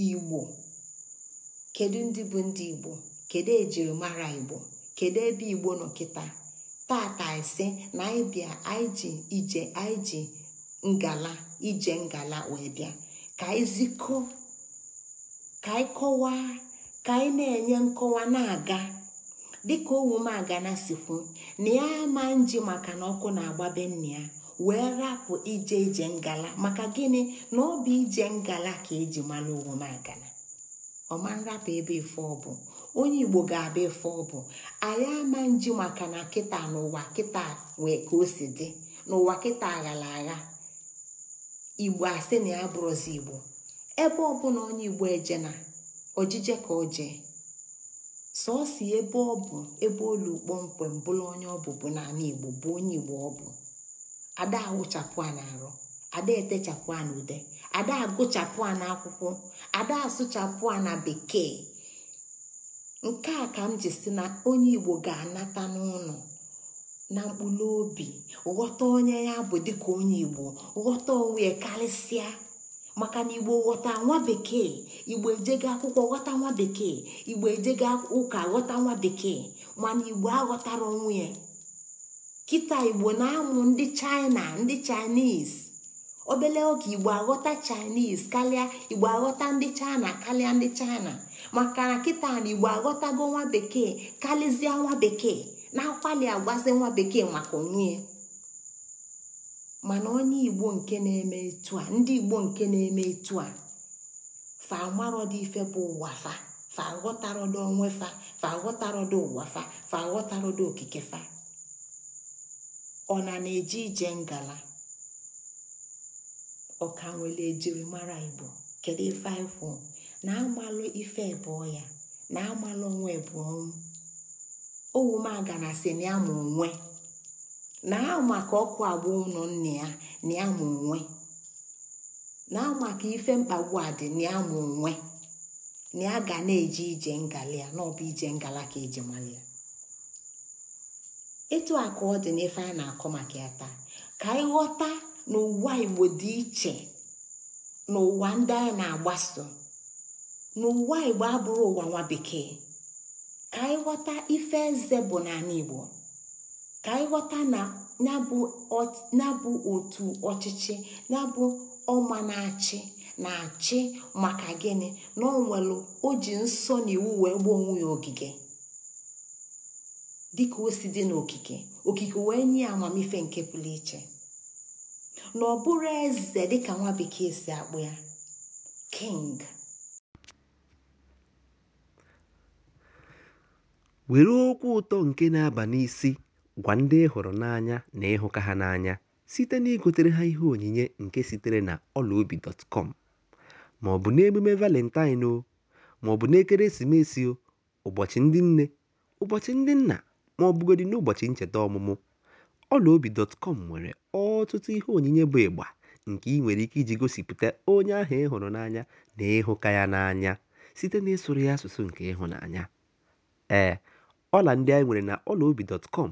igbo kedu ndị bụ ndị igbo kedu ejirimara igbo kedu ebe igbo nọ kịta tata ise na anyị bịa anyị ije anyị ngala ije ngala wee bịa ka anyị zikọ ka anyị ka anyị na-enye nkọwa na-aga dịka owumagana sikwu na ya ama nji maka na ọkụ na-agbabe nne ya wee rapụ ije ije ngala maka gịnị na ọ bụ ije ngala ka eji mara owumagana ọma nrapụ ebe ife ọbụ onye igbo ga-abịa ife ọbụ anyị ama nji maka na kịta n'ụwa kịta wee ka o si dị n'ụwa kịta aghara agha igbo asị na ya bụrụzi igbo ebe ọbụla onye igbo ejena. ojije ka o jee sọọsọ ebe ọ bụ ebe olu kpọmkwem bụrụ onye ọ bụbu n'ala igbo bụ onye igbo ọ bụ ada awụchapụ a na-arụ ada etechapụ a na ada agụchapụ a na akwụkwọ ada asụchapụ a na bekee nke a ka m ji si na onye igbo ga-anata n'ụlọ na mkpụrụ obi ghọta onye ya bụ dịka onye igbo ghọta onwe ya karịsịa maka na igbo ghọta nwa bekee igbo ejego akwụkwọ ghọta nwa bekee igbo ejego ụka ghọta nwa bekee mana igbo aghọtara onwe ya kịta igbo na-amụ ndị china ndị chaịnis obele oge igbo aghọta chaịnis kalịa igbo aghọta ndị china kalịa ndị china maka na kịta na igbo aghọtago nwa bekee karịzịa nwa bekee na-akwali agwazi nwa bekee maka onwe ya mana onye igbo nke na-eme etu a ndị igbo nke na-eme etu a fa amarọdị ife bụ ụwa fa fa ọdụ onwe fa fa ọdụ ụwa fa fa ọdụ okike fa ọ na na-eji ije ngala ọka nwere ejiri mara igbo kedu ife na amalụ ife ebụọ ya na amalụ onwe ebụọ ọnwụ owu m aga na si na ya ma onwe na ahụ maka ọkụ agba ụlọ nna ya na ya onwe na ahụ ife mkpagbu a dị na ya onwe na ya ga na-eje ije ngalị ya na ọ bụ ije ngala ka eji mara ya etu a ka ọ dị n'ife a na-akọ maka ya taa ka anyị ghọta na ụwa igbo dị iche na ụwa ndị anyị na-agbaso na ụwa igbo abụrụ ụwa nwa bekee ka anyị ghọta ife eze bụ n'ala igbo ka anyị ghọta na bụ otu ọchịchị na na-abụ ọma na-achị na-achị maka gịnị na ọ nwere o ji nsọ na iwu wee gbuo onwe ya ogige dịka o si dị n'okike okike wee nye amamife nke pụrụ iche na ọ bụrụ eze dịka nwa bekee si akpụ ya king were okwu ụtọ nke na-aba n'isi Gwa ndị ị hụrụ n'anya na ị hụka ha n'anya site na igotere ha ihe onyinye nke sitere na ọlaobi.com ma ọ bụ n'emume Valentine ma ọ bụ n'ekeresimesi, ụbọchị ndị nne, ụbọchị ndị nna ma ọ bụgodị n'ụbọchị ncheta ọmụmụ, ọlaobi.com nwere ọtụtụ ihe onyinye bụ ịgba nke ị nwere ike iji gosipụta onye ahụ ị hụrụ n'anya na ịhụka ya n'anya site n'ịsụrụ ya asụsụ nke ịhụnanya. Ee, eh, ọla ndị anyị nwere na ọlaobi.com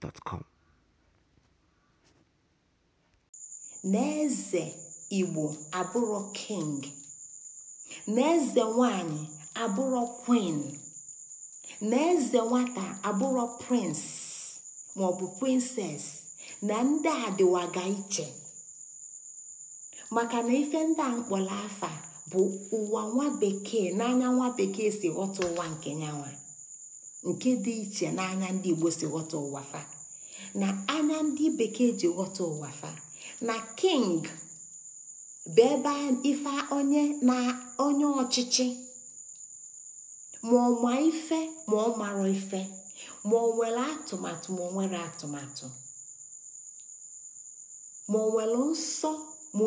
gmail.com na eze igbo abụrụ king na eze nwanyị abụrụ queen na eze nwata abụrụ prince maọbụ princess na ndị a dịwaga iche maka na ife ndị a mkpọrọ afa bụ ụwa nwa bekee n'anya nwa bekee si ghọta ụwa nke nyanwa nke dị iche n'anya ndị igbo si ghọta ụwa fa na anya ndị bekee ji ghọta ụwa fa na king bụ ebe ife onye na onye ọchịchị ma ọ ma ife ma ọ mara ife ma ọ nwere atụmatụ ma ọ nwere atụmatụ ma ọ nwere nsọ ma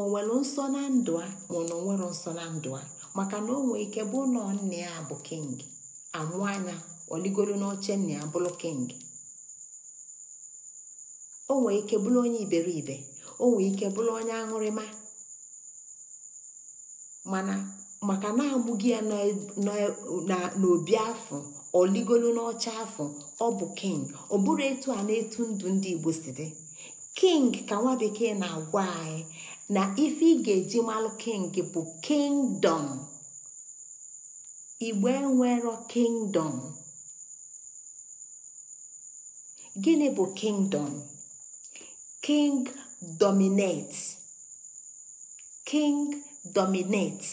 ọ nwere nsọ na ndụ a ma ọ na onwere nsọ na ndụ a maka na o nwee ike bụ ụlọ nne ya bụ king amụ anya oligolu n'oche nna ya bụrụ king o nwee ike bụrụ onye iberibe o nwee ike bụrụ onye aṅụrịma mana maka na agbụghị ya e, e, n'obi afọ oligolu n'ọcha afọ ọ bụ king ọ bụrụ etu a na-etu ndụ ndị igbo si dị king ka nwa bekee na-agwa anyị na ife ị ga-eji malụ king bụ kingdom igbe nwere kingdom gịnị bụ kingdom king dominate king dominate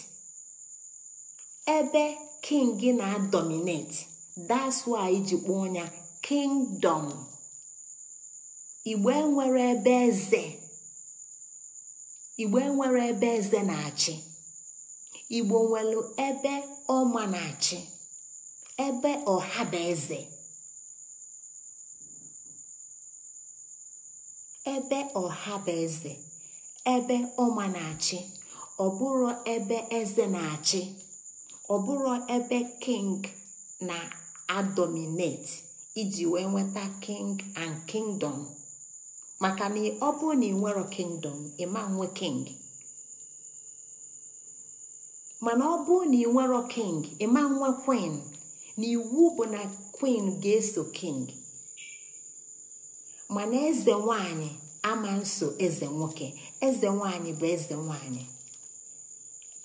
ebe king gị na-adominate that's why iji kpọọ ya kingdom igbe nwere ebe eze igbe nwere ebe eze na-achị igbo nwelu ebe ọma na-achị ebe ọha bụ eze ebe ọha bụ eze ebe ọma na-achị ọ bụrụ ebe eze na-achị ọ bụrụ ebe king na-adominate iji wee nweta king and kingdom maka na ọ bụrụ na ị kingdom ịma nwe king mana ọ bụrụ na ị nwero king ịma nwa queen na iwu bụ na queen ga-eso king mana eze nwanyị ama nso eze nwoke eze nwanyị bụ eze nwanyị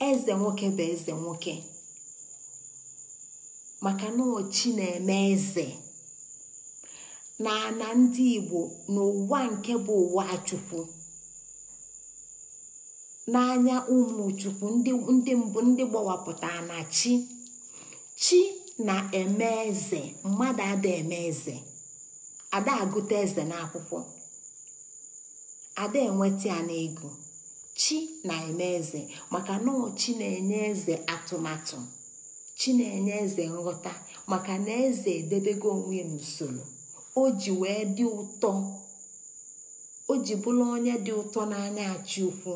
eze nwoke bụ eze nwoke maka na ochi na-eme eze na ana ndị igbo n'ụwa nke bụ ụwa chukwu n'anya ụmụ chukwu ndị mbụ ndị gbawapụtara na chi chi na-eme eze mmadụ ada eme eze ada agụta eze n'akwụkwọ ada enweta ya n'ego chi na-eme eze maka na chi na-enye eze atụmatụ chi na-enye eze nghọta maka na eze edebego onwe n'usoro o ji wee dị ụtọ o ji bụrụ onye dị ụtọ n'anya achị ukwu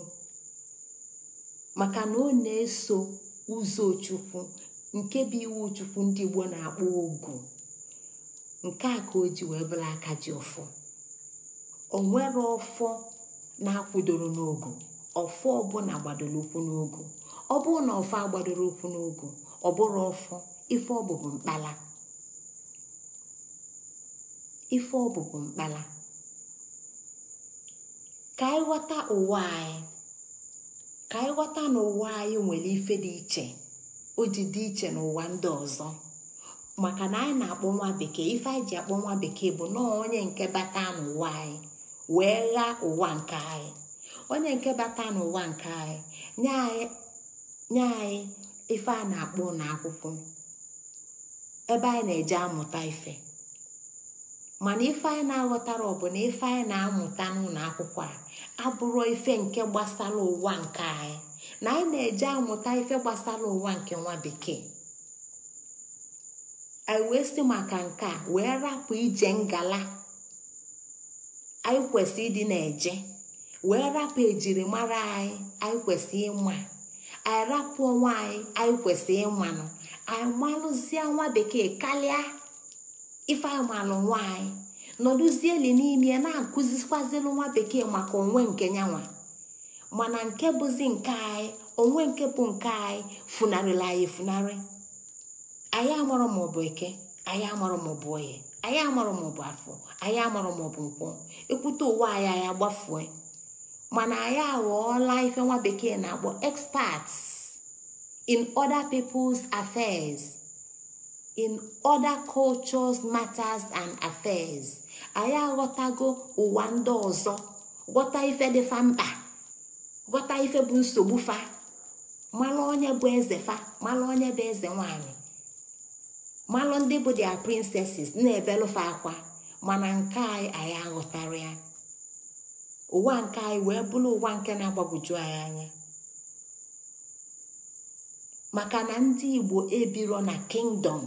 maka na ọ na-eso ụzọ chukwu nke bụ iwu chukwu ndị Igbo na-akpọ ogu nke a ka o ji wee bụrụ aka ji ụfọ o nwere ọfọ na-akwụdoro n'ogu ọfọ ọbụla gbadoro ụkwụ n'ogu ọ bụrụ na ọfọ agbadoro ụkwụ n'ogu ọ bụrụ ọfọ ife ọbụbụ mkpala ife ọbụbụ mkpala ka anyị ghọta ụwa anyị ka anyị ghọta na anyị nwere ife dị iche o ji dị iche n'ụwa ndị ọzọ maka na anyị na-akpọ nwa bekee ife anyị ji akpọ nwa bekee bụ nọọ onye nke bata n'ụwa anyị wee ghaa ụwa nke anyị onye nke bata n'ụwa nke anyị nye anyị ife a na-akpọ n'akwụkwọ ebe anyị na-eje amụta ife mana ife anyị na-aghọtara ọ bụ na ife anyị na-amụta n'ụlọ akwụkwọ a abụrụ ife nke gbasara ụwa nke anyị na anyị na-eje amụta ife gbasara ụwa nke nwa bekee anyị wee si maka nke a wee rapụ ije ngala anyị kwesị ịdị na-eje wee rapụ ejirimara anyị anyị kwesị ịma anyị rapụ onwe anyị anyị kwesị ịmanụ anyị malụzie nwa bekee karịa ifeamalụ nwanyị nọdụzieli n'ime ya na-akụzikwazilụ nwa bekee maka onwe nke nyanwa mana nke bụzi nke anyị onwe nke bụ nke anyị funarịla anyị funarị anyị amarọ maọbụ eke anyị amarọ maọbụ oye anyị amarọ maọbụ afọ anyị amarọ maọbụ nkwọ ekwute ụwa anyị anyị agbafue mana anyị aghọọla ife nwa bekee na-akpọ experts in other people's affairs. in other cultures matters and affairs anyị aghọtago ụwa ndị ọzọ ghọta ife dịfa mkpa ghọta ife bụ nsogbu fa malụ onye bụ eze fa malụ onye bụ eze nwanyị malụ ndị bụ dia princesses na-ebelụfa akwa mana nke anyị anyị aghọtara ya ụwa nke anyị wee bụrụ ụwa nke na-agbagwoju anyị anya maka na ndị igbo ebiro na kingdom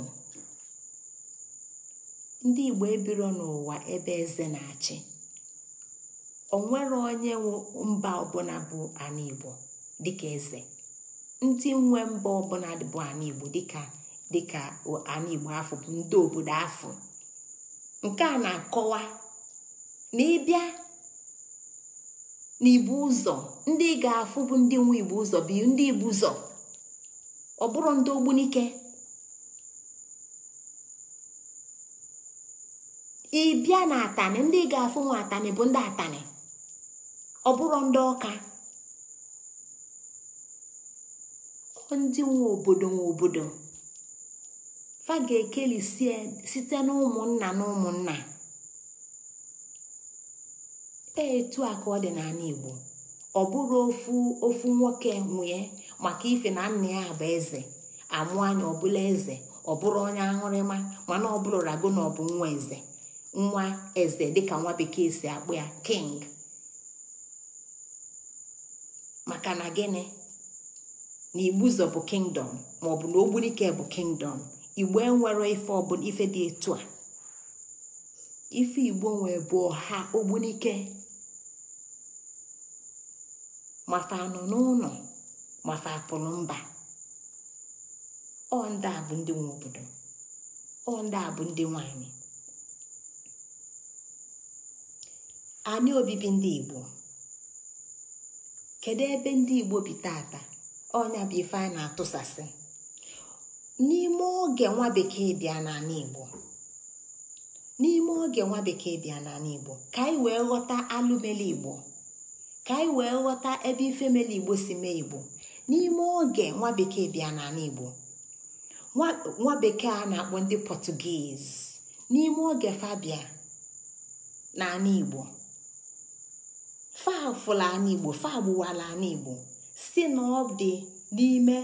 ndị igbo ebiro n'ụwa ebe eze na-achị onwere onye mba ọbụla bụ ana igbo dịka eze ndị nwe mba ọbụla bụ ana igbo dịka dịka ana igbo afọ bụ obodo afọ nke a na-akọwa na ịbịa n'igbu ụzọ ndị ga-afụ bụ ndị nwe igbo ụzọ bụ ndị igbu ụzọ ọ bụrụ ndị ogbunike bịa na atani ndị ga-afụ nwa atanị bụ ndị atani ọ bụrụ ndị ọka ndị nwe obodo nwe obodo fa ga-ekeli site na ụmụnna na e, ụmụnna etu a ka ọ dị n'ala Igbo ọ bụrụ ofu ofu nwoke nwee maka ife na nna ya bụ eze amụ anya ọbụla eze ọ bụrụ onye aṅụrịma mana ọ bụrụ rago na ọ bụ nwa eze nwa eze dịka nwa bekee si akpụ ya king maka na gịnị na igbu bụ kingdom maọbụ na ogbunike bụ kingdom igbo enwere ife ọbụla ife dị etu a ife igbo nwee bụ ọha ogbunike mafa anọ n'ụlọ mafa apụrụ mba ọ ndị a bụ ndị nwe obodo ọ ndị a bụ ndị nwanyị anyị obibi ndị igbo kedu ebe ndị igbo bi tata ọnya bụ ife a na-atụsasị n'ime oge nwa bekee bịa n'ala igbo n'ime oge nwa bekee bịa n'ala igbo ka anyị wee ghọta alụmeli igbo ka anyị wee ghọta ebe ifemele igbo si mee igbo n'ime oge nwa bekee bịa n'ala igbo nwa bekee a na-akpọ ndị pọtụgiz n'ime oge fabia n'ala igbo fafụla ana igbo fagbuwala si na dị n'ime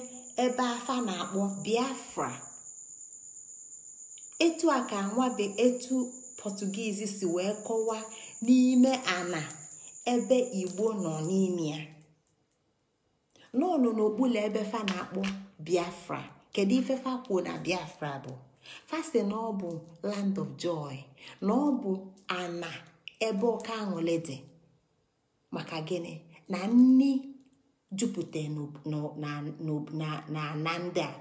ebe afa na-akpọ biafra etu a ka nwabe etu pọtugiizi si wee kọwaa n'ime ana ebe igbo nọ n'ime ya n'ọnụ n'okpuru ebe fa na-akpọ biafra kedu ife fa na biafra bụ fasi na ọ bụ land of joy na ọ bụ ana ebe ọka aṅụli dị maka gịnị na nni jupute na na ndị a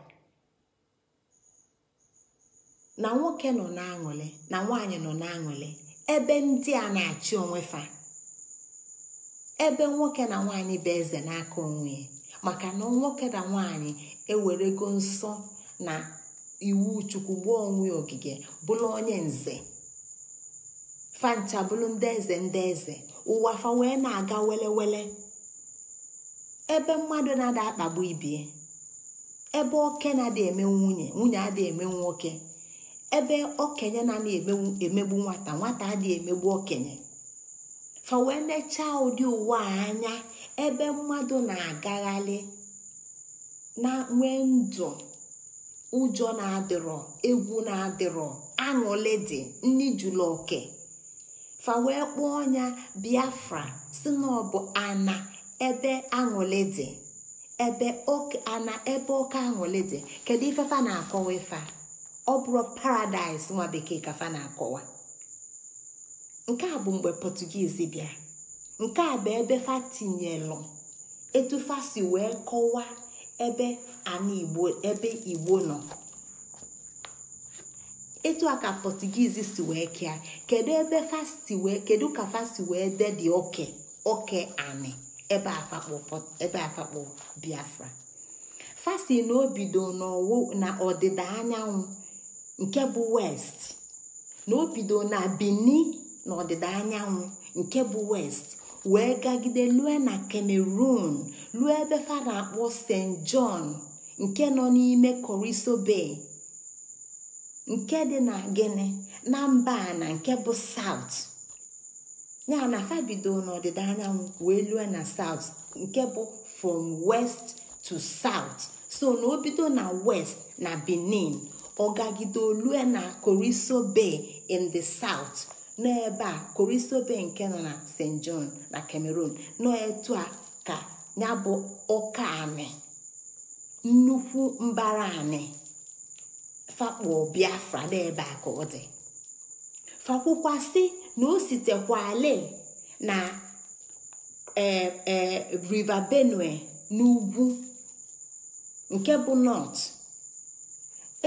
na nwoke nọ na na nwaanyị nọ na ebe ndị a na-achị onwe fa ebe nwoke na nwaanyị bụ eze n'aka onwe maka na nwoke na nwaanyị ewerego nsọ na iwu chukwu gbuo onwe ogige bụrụ onye nze fancha bụrụ ndị eze ndị eze ụwa fa wee na-aga wele ebe mmadụ na-ada akpagbu ibie ebe oke na adị eme nwunye nwunye adị eme nwoke ebe okenye na adị emegbu nwata nwata adị emegbu okenye fa wee nechaa ụdị ụwa anya ebe mmadụ na-agagharị na nwee ndụ ụjọ na-adịrọ egwu na-adịrọ aṅụlị dị nni oke. fa wee kpọọ ya biafra si na ana ebe aṅụle dị ebe ana ebe ọka aṅụli dị kedu ife fa na-akọwa ife ọ bụrụ paradaịs nwa bekee ka fana na-akọwa nke a bụ mgbe pọtugiizi bịa nke a bụ ebe fa tinyelụ etu si wee kọwaa ebe ana igbo ebe igbo nọ etu a ka si wee kea kedu ebe fasti wee kedu ka fasti wee dedi oke oke ani ebe afakpo biafra fasti na obido na ọdịda anyanwụ nke bụ west na obido na bini na ọdịda anyanwụ nke bụ west wee gagide lue na cameroon lue ebe fa na-akpọ st john nke nọ n'ime coriso bay nke dị na gịnị na mba a na nke bụ saut ya na fa bido n'ọdịda anyanwụ wee lue na saut nke bụ from west to south so na o bido na west na benin ọgagide olue na koriso bay in the south n'ebe a koriso bay nke nọ na st john na cameroon nọ etu a ka ya bụ ọka anị nnukwu mbara anị fakpo biafra n'ebe a ka ọ dị fakwukwasị na o sitekwale na e, e, river benue n'ugwu nke bụ nọt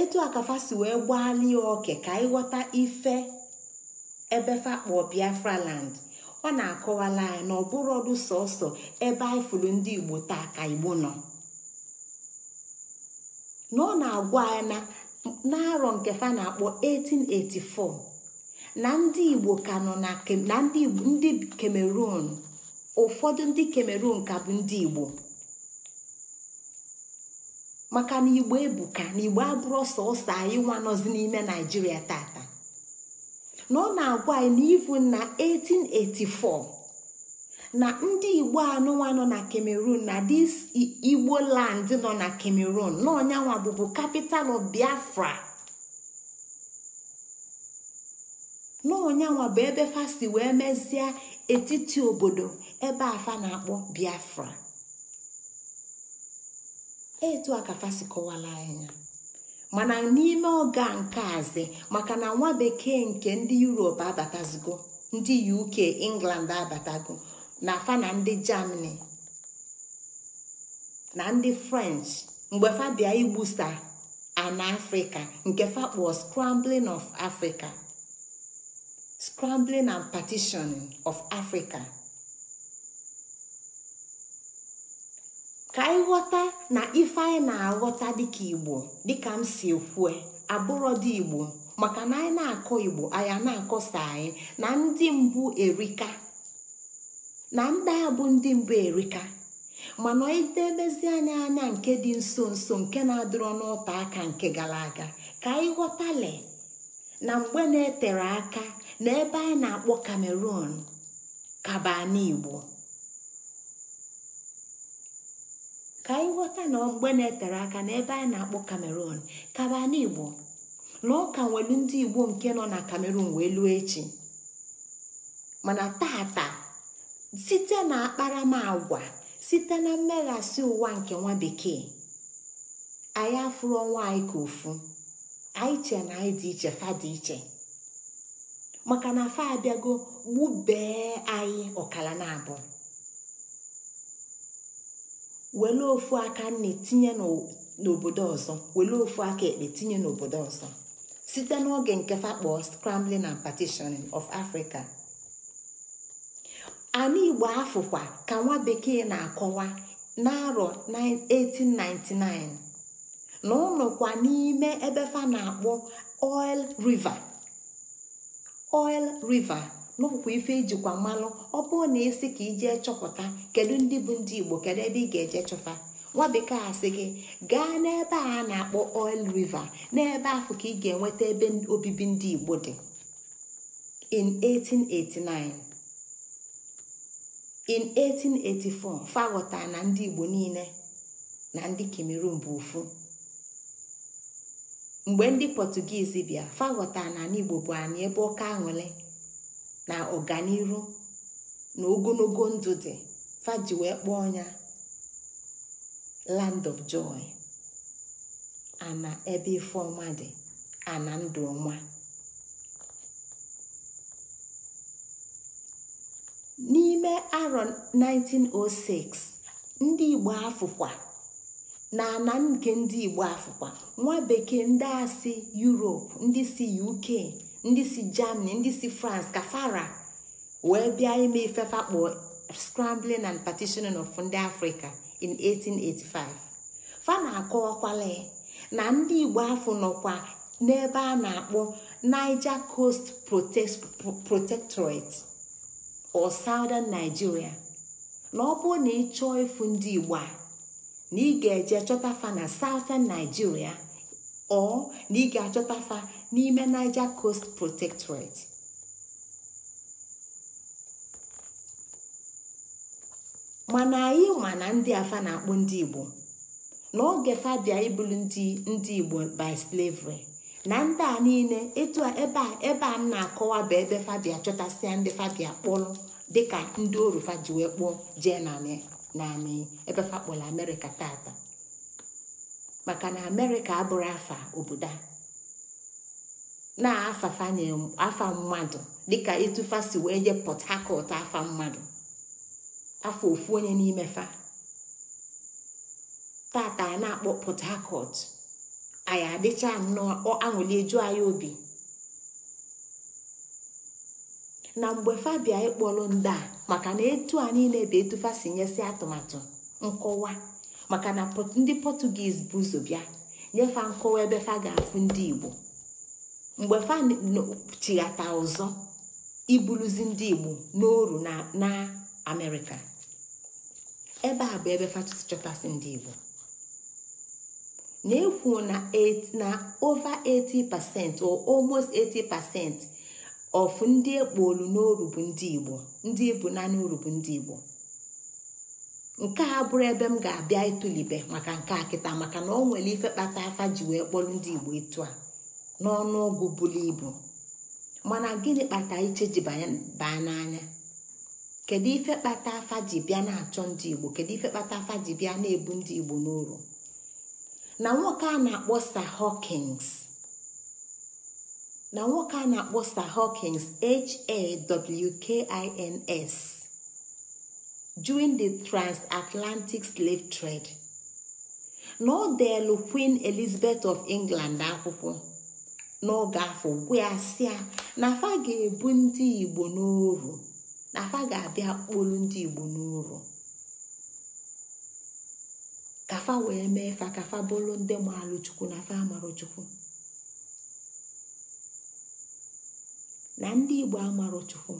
etu akafasi wee gbalie oke ka ịghọta ife ebe fakpo biafra land ọ na-akọwala anyị na ọdụ sọsọ ebe anyị ndị igbo taa ka igbo nọ na ọ na-agwa na n'arọ nke fa na-akpọ 1884 na ndị igbo ka nọ na ndị cameroon ụfọdụ ndị cameroon ka bụ ndị igbo maka na igbo ebuka na igbo abụrụ sọsọ anyị nwanọzi n'ime naijiria tata na ọ na-agwa anyị n'ivu na 1884 na ndị igbo anụnwa nọ na cameroon na dis igbo land nọ na cameroon n'ọnyanwa bụbu capital of biafra n'ọnyanwa bụ ebe fasi wee mezie etiti obodo ebe afa na-akpọ biafra etu a ka fasi kọwara anya mana n'ime ọga nke azi maka na nwa bekee nke ndị europe abatazigo ndị uk england abatago na fa na ndị germany na ndị french mgbe fa bịa igbusa ana afrịka nke fa kpọọ scrambling of africa scrambling and of africa ka anyị ghọta na ife anyị na-aghọta dịka igbo dịka m si kwue abụrọ dị igbo maka na anyị na-akọ igbo anyị na-akọsa anyị na ndị mbụ erika na ndị a bụ ndị mbụ erika mana idebezi anya anya nke dị nso nso nke na-adịrọ n'ụta aka nke gara aga ka anyị ghọtale na mgbe na-etere aka na ebe anyị na-akpọ kamerun kabanigbo ka anyị na mgbe na-etere aka na ebe anyị na-akpọ kamerun na nwelu ndị igbo nke nọ na cameroon wee lụọ echi mana tata site na akparamagwa site na mmeghasị ụwa nke nwa bekee anyị afụrụ ọnwa anyị ka ofu anyị che na anyị dị iche fa dị iche maka na fa abịago gbubee anyị ọkara na-abụ were ofu aka nne tinye n'obodo ọzọ were ofu aka ekpe tinye n'obodo ọzọ site n'oge nke fa kpọọ scrambling and partitioning of Africa anụ igbo afụkwa ka nwa bekee na-akọwa n'arọ 1899 na ụnọkwa n'ime ebe fa na-akpọ oil river oil river n'ụkwụkwa ife ijikwa mmanụ ọ bụrụ na esi ka ije chọpụta kedu ndị bụ ndị igbo kedu ebe ị ga-eje chọfa nwa bekee asị gị gaa n'ebe a na-akpọ oil river n'ebe afọ ka ị ga-enweta ebe obibi ndị igbo dị in 1889 in 1884 faghọtara na ndị igbo niile na ndị cameroon bụ ofu mgbe ndị pọtụgizi bịa faghọtara na igbo bụ anyị ebe ọka aṅụle na ọganiru na ogologo ndụ dị faji wee kpọọ ya land of joy ana ebe ife ọma dị ana ndụ ọma n'ime aro 1906 ndị igbo afụkwa na ana nke ndị igbo afụkwa nwa bekee ndị a si ndị si uk ndị si germany ndị si france ka fara wee bịa ime ifefa kpọọ scrambling and partitioning of ndị afrịka in 1885 fana na-akọwakwala na ndị igbo afọ nọkwa n'ebe a na-akpọ niger coast protectorate or southern Nigeria na ọ bụrụ na ị chọọ ịfụ ndị Igbo a na ị ga-eje chọta na southern Nigeria ọ na ị ga-achọta n'ime Niger Coast Protectorate mana anyị ma na ndị afa na-akpụ ndị Igbo na oge fa ibulu ndị ndị Igbo by slavery na ndị a niile etu a ebe a ebe a na-akọwa bụ ebe fabia chọtasịa ndị fabia kpụrụ dịka ndị orufa ji wee kpụọ jee na ebe amerịka tata maka na amerịka abụrụ afa obodo a na-afafanye afa mmadụ dịka ịtụfa si wee je pọt hakọt afa mmadụ afọ ofu onye n'ime fa a na-akpọ pọt hakọt anyị adịcha nnọọ aṅụli eju anyị obi na mgbe fabia ịkpọrọ ndị a maka na etu a niile bụ etufa si nyesi atụmatụ nkọwa maka na ndị pọtugiz bụ ụzọ bịa nyefa nkọwa ebe fa ga-afụ ndị igbo mgbe fa chighata ọzọ ibuluzi ndị igbo n'oru na amerịka ebe a bụ ebe fa ndị igbo na-ekwu na over 80 pasent or almost 80 pasent of ndị ekpolu n'oru bụ ndị igbo ndị ibu na n'oru bụ ndị igbo nke a bụrụ ebe m ga-abịa ịtụlibe maka nke a kịta maka na ọ nwere ife kpata afa ji wee kpọrọ ndị igbo etu a n'ọnụọgụ ọgụ buru ibu mana gịnị kpata iche ji baa n'anya kedu ife kpata afa ji bịa na-achọ ndị igbo kedu ife kpata afa ji bịa na-ebu ndị igbo n'oru na nwoke a na-akpọ Sir Hawkins na nwoke during the transatlantic slave trade na ọ deelu Queen Elizabeth of England akwụkwọ n'oge afọ gwasịa na afa ga-ebu ndị Igbo n'oru na afa ga-abịa kpolu ndị Igbo n'oru ka fa wee mee fa ka fa bụrụ ndị maalụ chukwu na fa amarụ chukwu na ndị igbo amarụ chukwu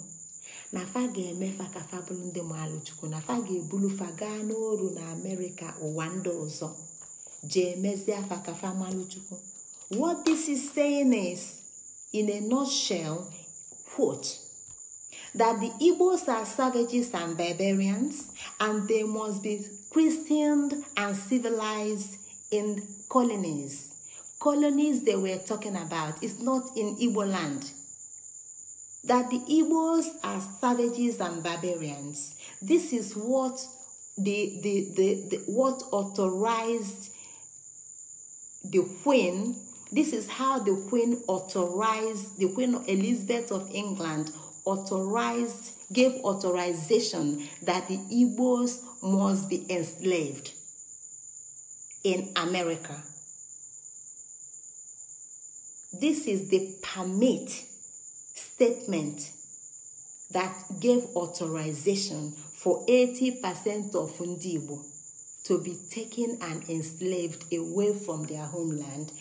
na fa ga-eme fa ka fa bụrụ ndị maalụ chukwu na fa ga-ebulu fa gaa n'oru na amerịka ụwa ndị ọzọ jee mezie fa ka fa malụ chukwu what this is saying is in a nutshell quote that the Igbos are savages and barbarians and they must be christened and civilized in colonies colonies they were talking about is not in igbo land that the igbos are savages and barbarians this is what the, the, the, the what authorized the queen this is how the queen authorized the queen elizabeth of england authorized gave authorization that the Igbos must be enslaved in America. This is the permit statement that gave authorization for 80% of ndị Igbo to be taken and enslaved away from their homeland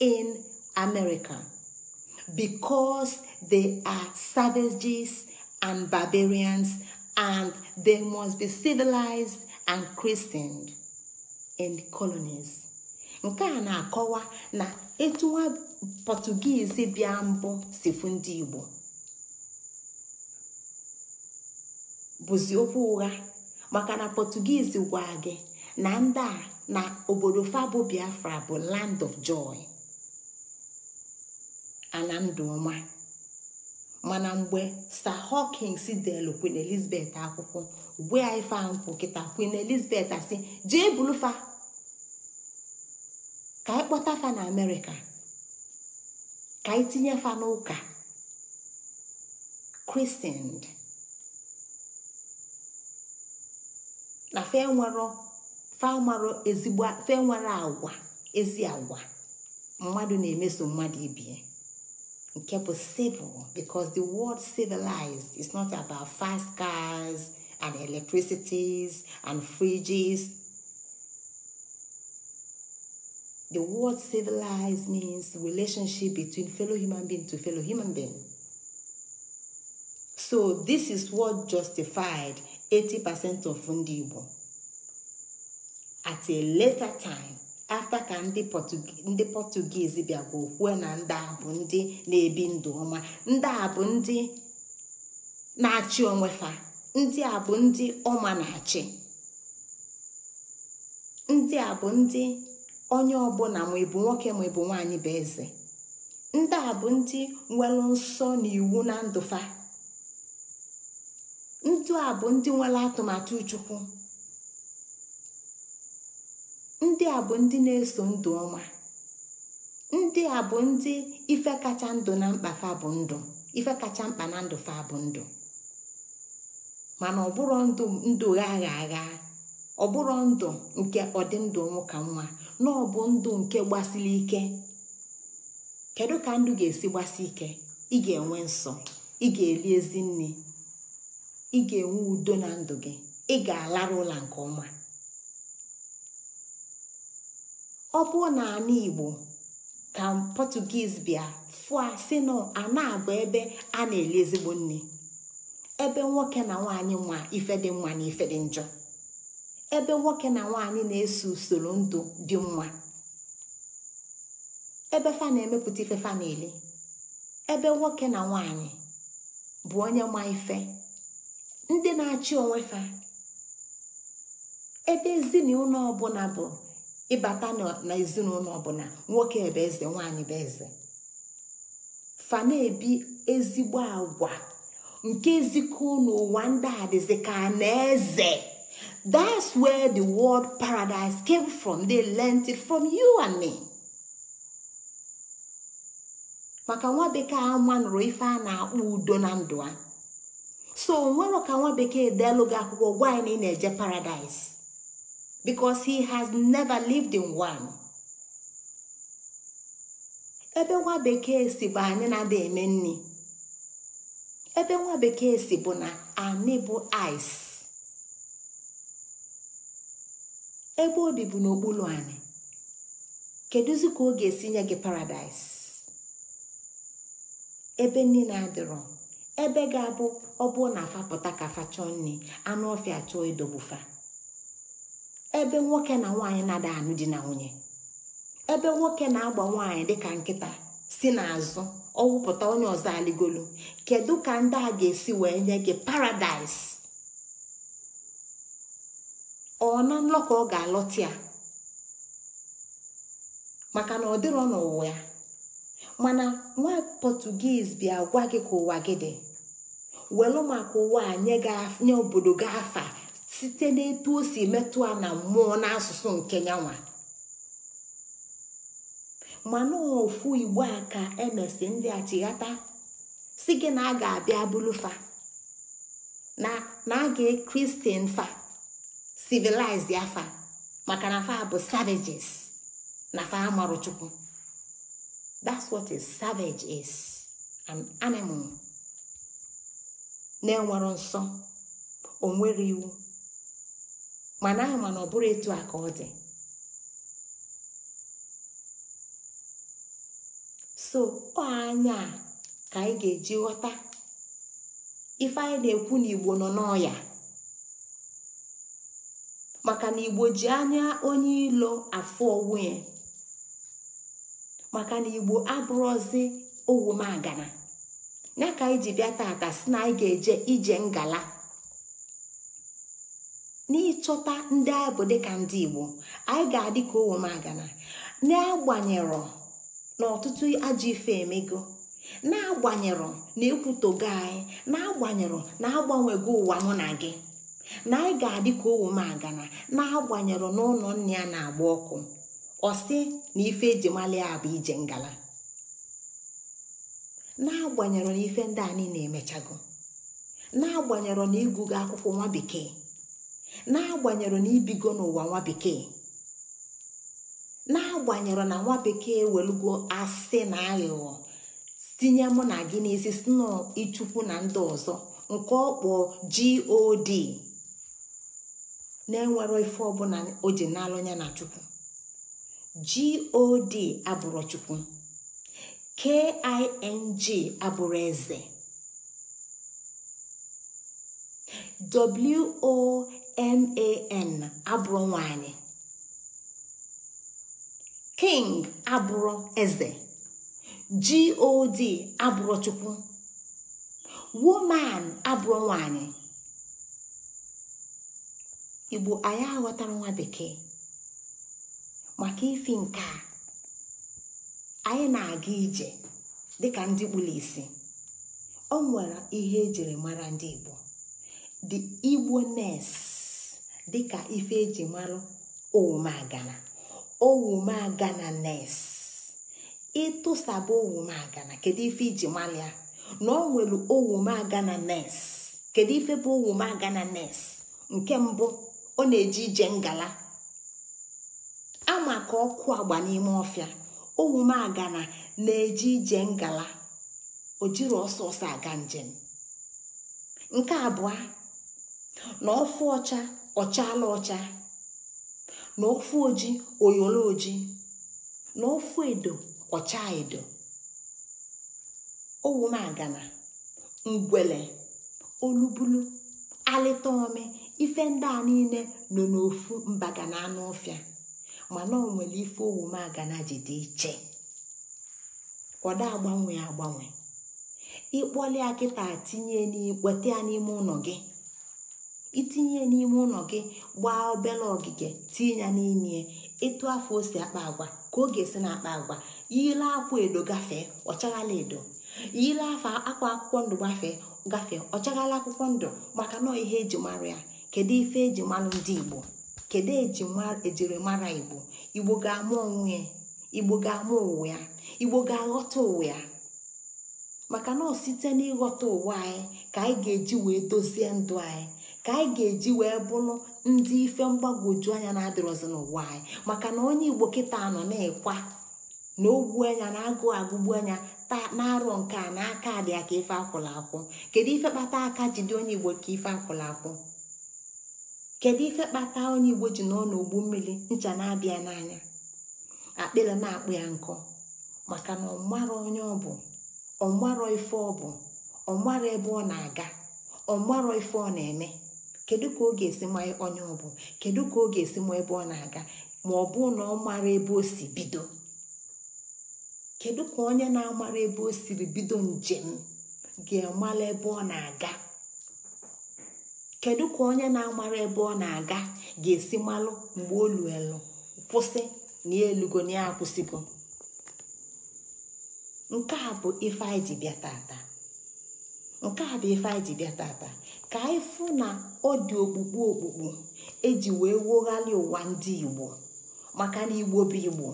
in America because they are savages and barbarians, and they must be civilized and christened in the colonies. nke a na-akọwa na etu nwa pọtụgiizi bịa mbụ si fu ndị igbo bụzi okwu ụgha maka na pọtụgiizi gwa gị na ndị a na obodo fabo biafra bụ land of joy ala ndụ ọma mana mgbe sir hawkins delu queen elizabeth akwụkwọ ugbu ya ife nkwụ kịta queen elizabeth si jee bulufa ka anyị kpọta fa na amerịka ka anyị tinye fa n'ụka christian na fe nwere fa ezi agwa mmadụ na-emeso mmadụ ibie nke bụ civil because the word civilized is not about fast cars and electricities and fridges The word civilized means relationship between fellow human being to fellow human being. So this is what justified 80% of Fundi Igbo. At a later time, afta ka ndị bịa bịakwa okwue na ndị a bụ ndị na-ebi ndụ ọma ndị a bụ ndị na-achị onwe fa ndị a bụ ndị ọma na-achị ndị a bụ ndị onye ọbụla ma ịbụ nwoke ma ịbụ nwaanyị bụ eze ndị a bụ ndị nwere nsọ na iwu na ndụfa, ndị a bụ ndị nwere atụmatụ chukwu ndị a bụ ndị na-eso ndụ ọma ndị a bụ ndị ife kacha ndụ na mkpa fa bụ ndụ ife kacha mkpa na ndụ fa bụ ndụ mana ọbụrụ ndụ ndụ agha agha ọbụrụ ndụ nke ọdịndụ nwoke nwa na ọbụ ndụ nke gbasiri ike kedu ka ndụ ga-esi gbasi ike ị ga-enwe nsọ ị ga-eri ezi nne ị ga-enwe udo na ndụ gị ị ga-alarụ ụla nke ọma ọ bụrụ na ana igbo ka pọtugiz bịa fụa si na ana ebe a na-eli ezigbo nne ebe nwoke na nwaanyị nwa ife dị mma na ife dị njọ ebe nwoke na nwaanyị na-eso usoro ndụ dị mma ebe fa na-emepụta ife fa na-eli ebe nwoke na nwanyị bụ onye ma ife ndị na-achị onwe fa ebe ezinụlọ ọbụla bụ ịbata na ezinụlọ ọbụla nwoke ebe eze nwaanyị bụ eze fa na-ebi ezigbo agwa nke ezikọ n'ụwa ndị a dịzị ka na eze that's where the world paradise came from they learnt it from you and me. maka nwa bekee ama nụrụ ife a na-akpọ udo na ndụ a so nwere ka nwa bekee deelụ gị akwụkwọ gwa na eje paradise bicos he has never lived in one ebe nwa bekee si bụ anyị na-ada eme nri ebe nwa bekee si bụ na anyị bụ ice ebe obi bụ n'okpuru anyị kedụzi ka ọ ga-esi nye gị paradaịs ebe niile adịrọ ebe ga-abụ ọ bụ na afapụta ka fa chọọ nri anụ ọfịa chọọ idobufa ebe nwoke na nwaanyị na-ada anụ di na nwunye ebe nwoke na-agba nwaanyị dịka nkịta si n'azụ ọwụpụta onye ọzọ aligolu kedu ka ndị a ga-esi wee nye gị paradaịs ọ na nlọ ka ọ ga-alọta ya maka na ọ dịrọ n'ụwa ya mana nwa pọtugiz bịa gwa gị ka ụwa gị dị welu maka ụwa nye obodo gị afa site n'etu o si metụ a na mmụọ n'asụsụ nke nyanwa mana ofu igbo a ka emesi ndị achịghata si na a ga-abịa bụlụfa na na a ga fa civilized ya maka na fa bụ savages na fa amarụ chukwu that's what is savage is an animal na-enwero nsọ onwere iwu mana ahụ mana ọ bụrụ etu a ka ọ dị so ọ anya ka anyị ga-eji ghọta ife anyị na-ekwu na igbo nọ n'ọya maka na igbo ji anya onye ilo afọ onwe maka na igbo ọzị owu magana ya ka anyị ji bịa tata si na anyị ga-eje ije ngala n'ịchọta ndị anyị bụ dịka ndị igbo anyị ga-adị ka owomagana n'agbanyerọ na ọtụtụ ajọ ife emego n'agbanyerọ na ekwutogo anyị na na-agbanyerọ na agbanwego ụwa mụ na gị na anyị ga-adị ka owomagana agana na ụlọ nne ya na-agba ọkụ ọsị na ife ejimali ya bụ ije ngala n'agbanyerọ na ife ndị a na emechago n'agbanyerọ na ịgụgo akwụkwọ nwa bekee n'agbanyeghị na ibigo n'ụwa nwa bekee na nwa bekee welugo asị na aghụghọ tinye mụ na gị n'isi sno ichukwu na ndị ọzọ nke ọkpọ god na enwere ife ọbụla o ji ya na chukwu god abụrụ chukwu king abụrụ eze man abụrụ nwanyị king abụrụ eze god abụrụ chukwu woman abụrụ nwanyị igbo anyị aghọtara nwa bekee maka ifi nke a anyị na-aga ije dịka ndị kpụrụ isi o nwere ihe ejiri mara ndị igbo the igbo nurse dịka ife eji malụ owumagana owumagana nes ịtụsaba owumagana kedu ife iji malụ ya na ọ nwere owumagana nes kedu ife bụ owumagana nes nke mbụ ọ na-eji ije ngala ama ka ọkụ agba n'ime ọfịa owumagana na-eji ije ngala o jiri ọsọsọ aga njem nke abụọ na ọfụ ọcha ọchala ọcha na ofu oji oyolo oji na ofu edo ọcha edo owumagana ngwele olubulu alịta ome ife ndị a niile nọ n'ofu mbagana anụ ọfịa mana o nwere ife owumagana ji dị iche ọda agbanwe agbanwe ịkpọlia kịta tinye n'ikpọte ya n'ime ụlọ gị itinye n'ime ụlọ gị gbaa obere ogige tinye ya n'ime etu afọ osi akpa agwa ka oge si na akpa agwa yile akwa edo gafee ọchaghala edo yile afa akwa akwụkwọ ndụ gafee ọ ọchaghala akwụkwọ ndụ maka nọọ ihe eji mara ya kedu ife eji mara ndị igbo kedu ejirimara igbo igbo ga-ama onwe ya igbo ga-ama ụwa ya igbo ga-aghọta ụwa ya maka na site n'ịghọta ụwa anyị ka anyị ga-eji wee dozie ndụ anyị ka anyị ga-eji wee bụrụ ndị ife mgbagwoju anya na ọzọ n'ụwa anyị maka na onye igbo kịta nọ na-ekwa na ogbu anya na agụ agụgbu anya taa na-arọ nke a na aka dị ya ka ife akwụla akwụ kedu ife kpata aka ji dị onye igbo ka ife akwụla akwụ kedu ife kpata onye igbo ji nọ n'ogbu mmiri ncha na-abịa n'anya akpịla na-akpụ ya nkọ maka na ọmara onye ọ bụ ọmara ife ọ bụ ọmara ebe ọ na-aga ọmara ife ọ na-eme kedu ka ọ ga-esi ma onye ọ bụ kedu ka ọ ga-esi ma ebe ọ na-aga ma ọ bụ na ọ mara ebe o si bido kedu ka onye na-amara ebe o siri bido njem ga-amala ebe ọ na-aga kedu ka onye na-amara ebe ọ na-aga ga-esi malụ mgbe olu elu kwụsị na elugo na ya akwụsịgo nke a bụ ife anyị ji bịa taata nke a bụ ife anyị ji bịa taata. ka na ọ dị okpukpu okpukpu eji wee woghalị ụwa ndị igbo maka na igbo bụ igbo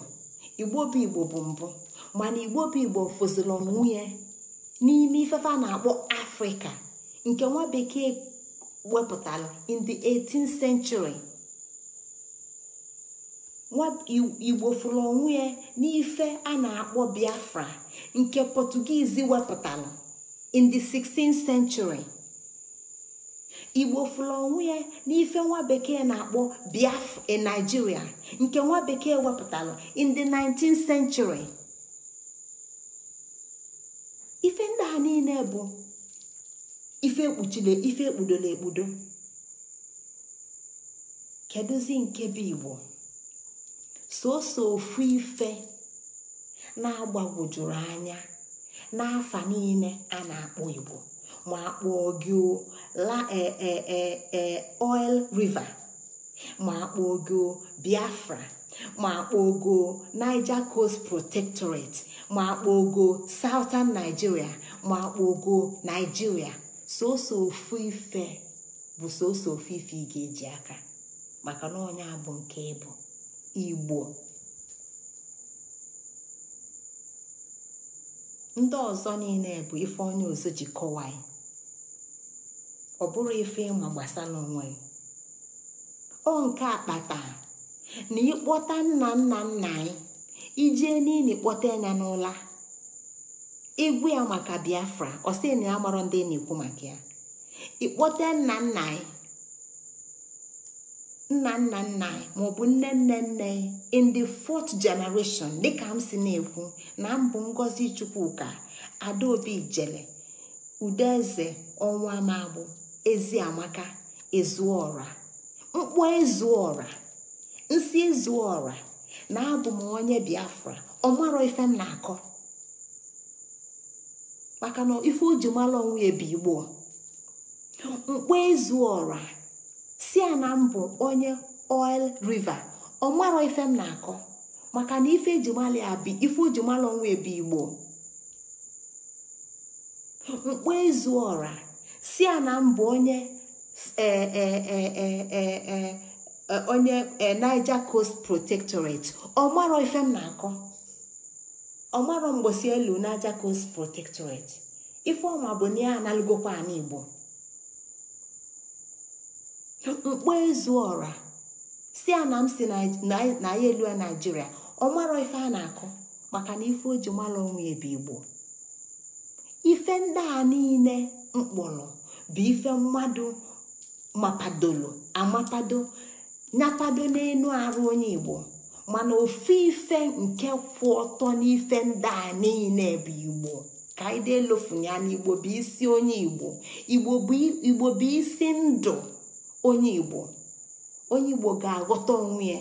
igbo bụ igbo bụ mbụ mana igbo bụ igbo fụziri nwunye n'ime ifefe a na-akpọ afrịka nke nwa bekee wepụtara in the 18th century nwa igbo fụrụ onwe n'ife a na-akpọ biafra nke portuguese wepụtara in the 16th century. igbo fụla onwe ya n'ife nwa bekee na-akpọ biafra nigeria nke nwa bekee wepụtara in 19th century ife ndị a niile bụ ife ekpuchile ife ekpudola ekpudo kedụzi nke bụ igbo soso ofu ife na-agbagwojuru anya n'afa niile a na-akpọ igbo ma akpọ gị la eh, eh, eh, oil river ma akpogo biafra ma akpogo niger coast protectorate ma akpogo southern nigeria ma akpogo nigeria soso ofu ife bụ soso ofu ife ị ga-eji aka maka na onye bụ nke ịbụ igbo ndị ọzọ niile bụ ife onye ji kọwaa ọ bụrụ ife ịma gbasa n'onwe ọ nke akpata na ịkpọta nna nna nna anyị ijee n'ili kpọta ya n'ụla egwu ya maka biafra ọ sị na ya marọ ndị na-ekwu maka ya ịkpọta nna nna anyị nna nna nna anyị maọbụ nne nne nne in the fourth generation dịka m si na-ekwu na mbụ ngozi chukwuka adaobi jele udeeze ọnwa magbụ Ezi eziamaka ezuọra mkpọ ezuọra nsị ezuọra na abụ m onye biafra ọ marọ ife m na-akọ maka na ife o ji mara onwe ya bụ igbo mkpọ ezuọra si a na mbụ onye oil river ọ marọ ife m na-akọ maka na ife eji mara ya bụ ife o ji mara onwe ya bụ igbo mkpọ ezuọra si ya na mbụ onye e, e, e, onye Niger Coast Protectorate ọmarọ ife m na-akọ ọmarọ mgbosi elu Niger Coast Protectorate ife ọma bụ na ya analụgokwa ala Igbo mkpọ ezu ọra si a na m si na ya elu naijiria ọ marọ ife a na-akụ maka na ife o ji mara onwe ebe igbo ife ndị a niile mkpụrụ. bụ ife mmadụ mapadolo amapado nyapado n'elu arụ onye igbo mana ofu ife nke kwụ ọtọ n'ife ndị a niile bụ igbo ka anyị deelofunya n'igbo bụ isi onye igbo igbo bụ isi ndụ onye igbo onye igbo ga-aghọta onwe ya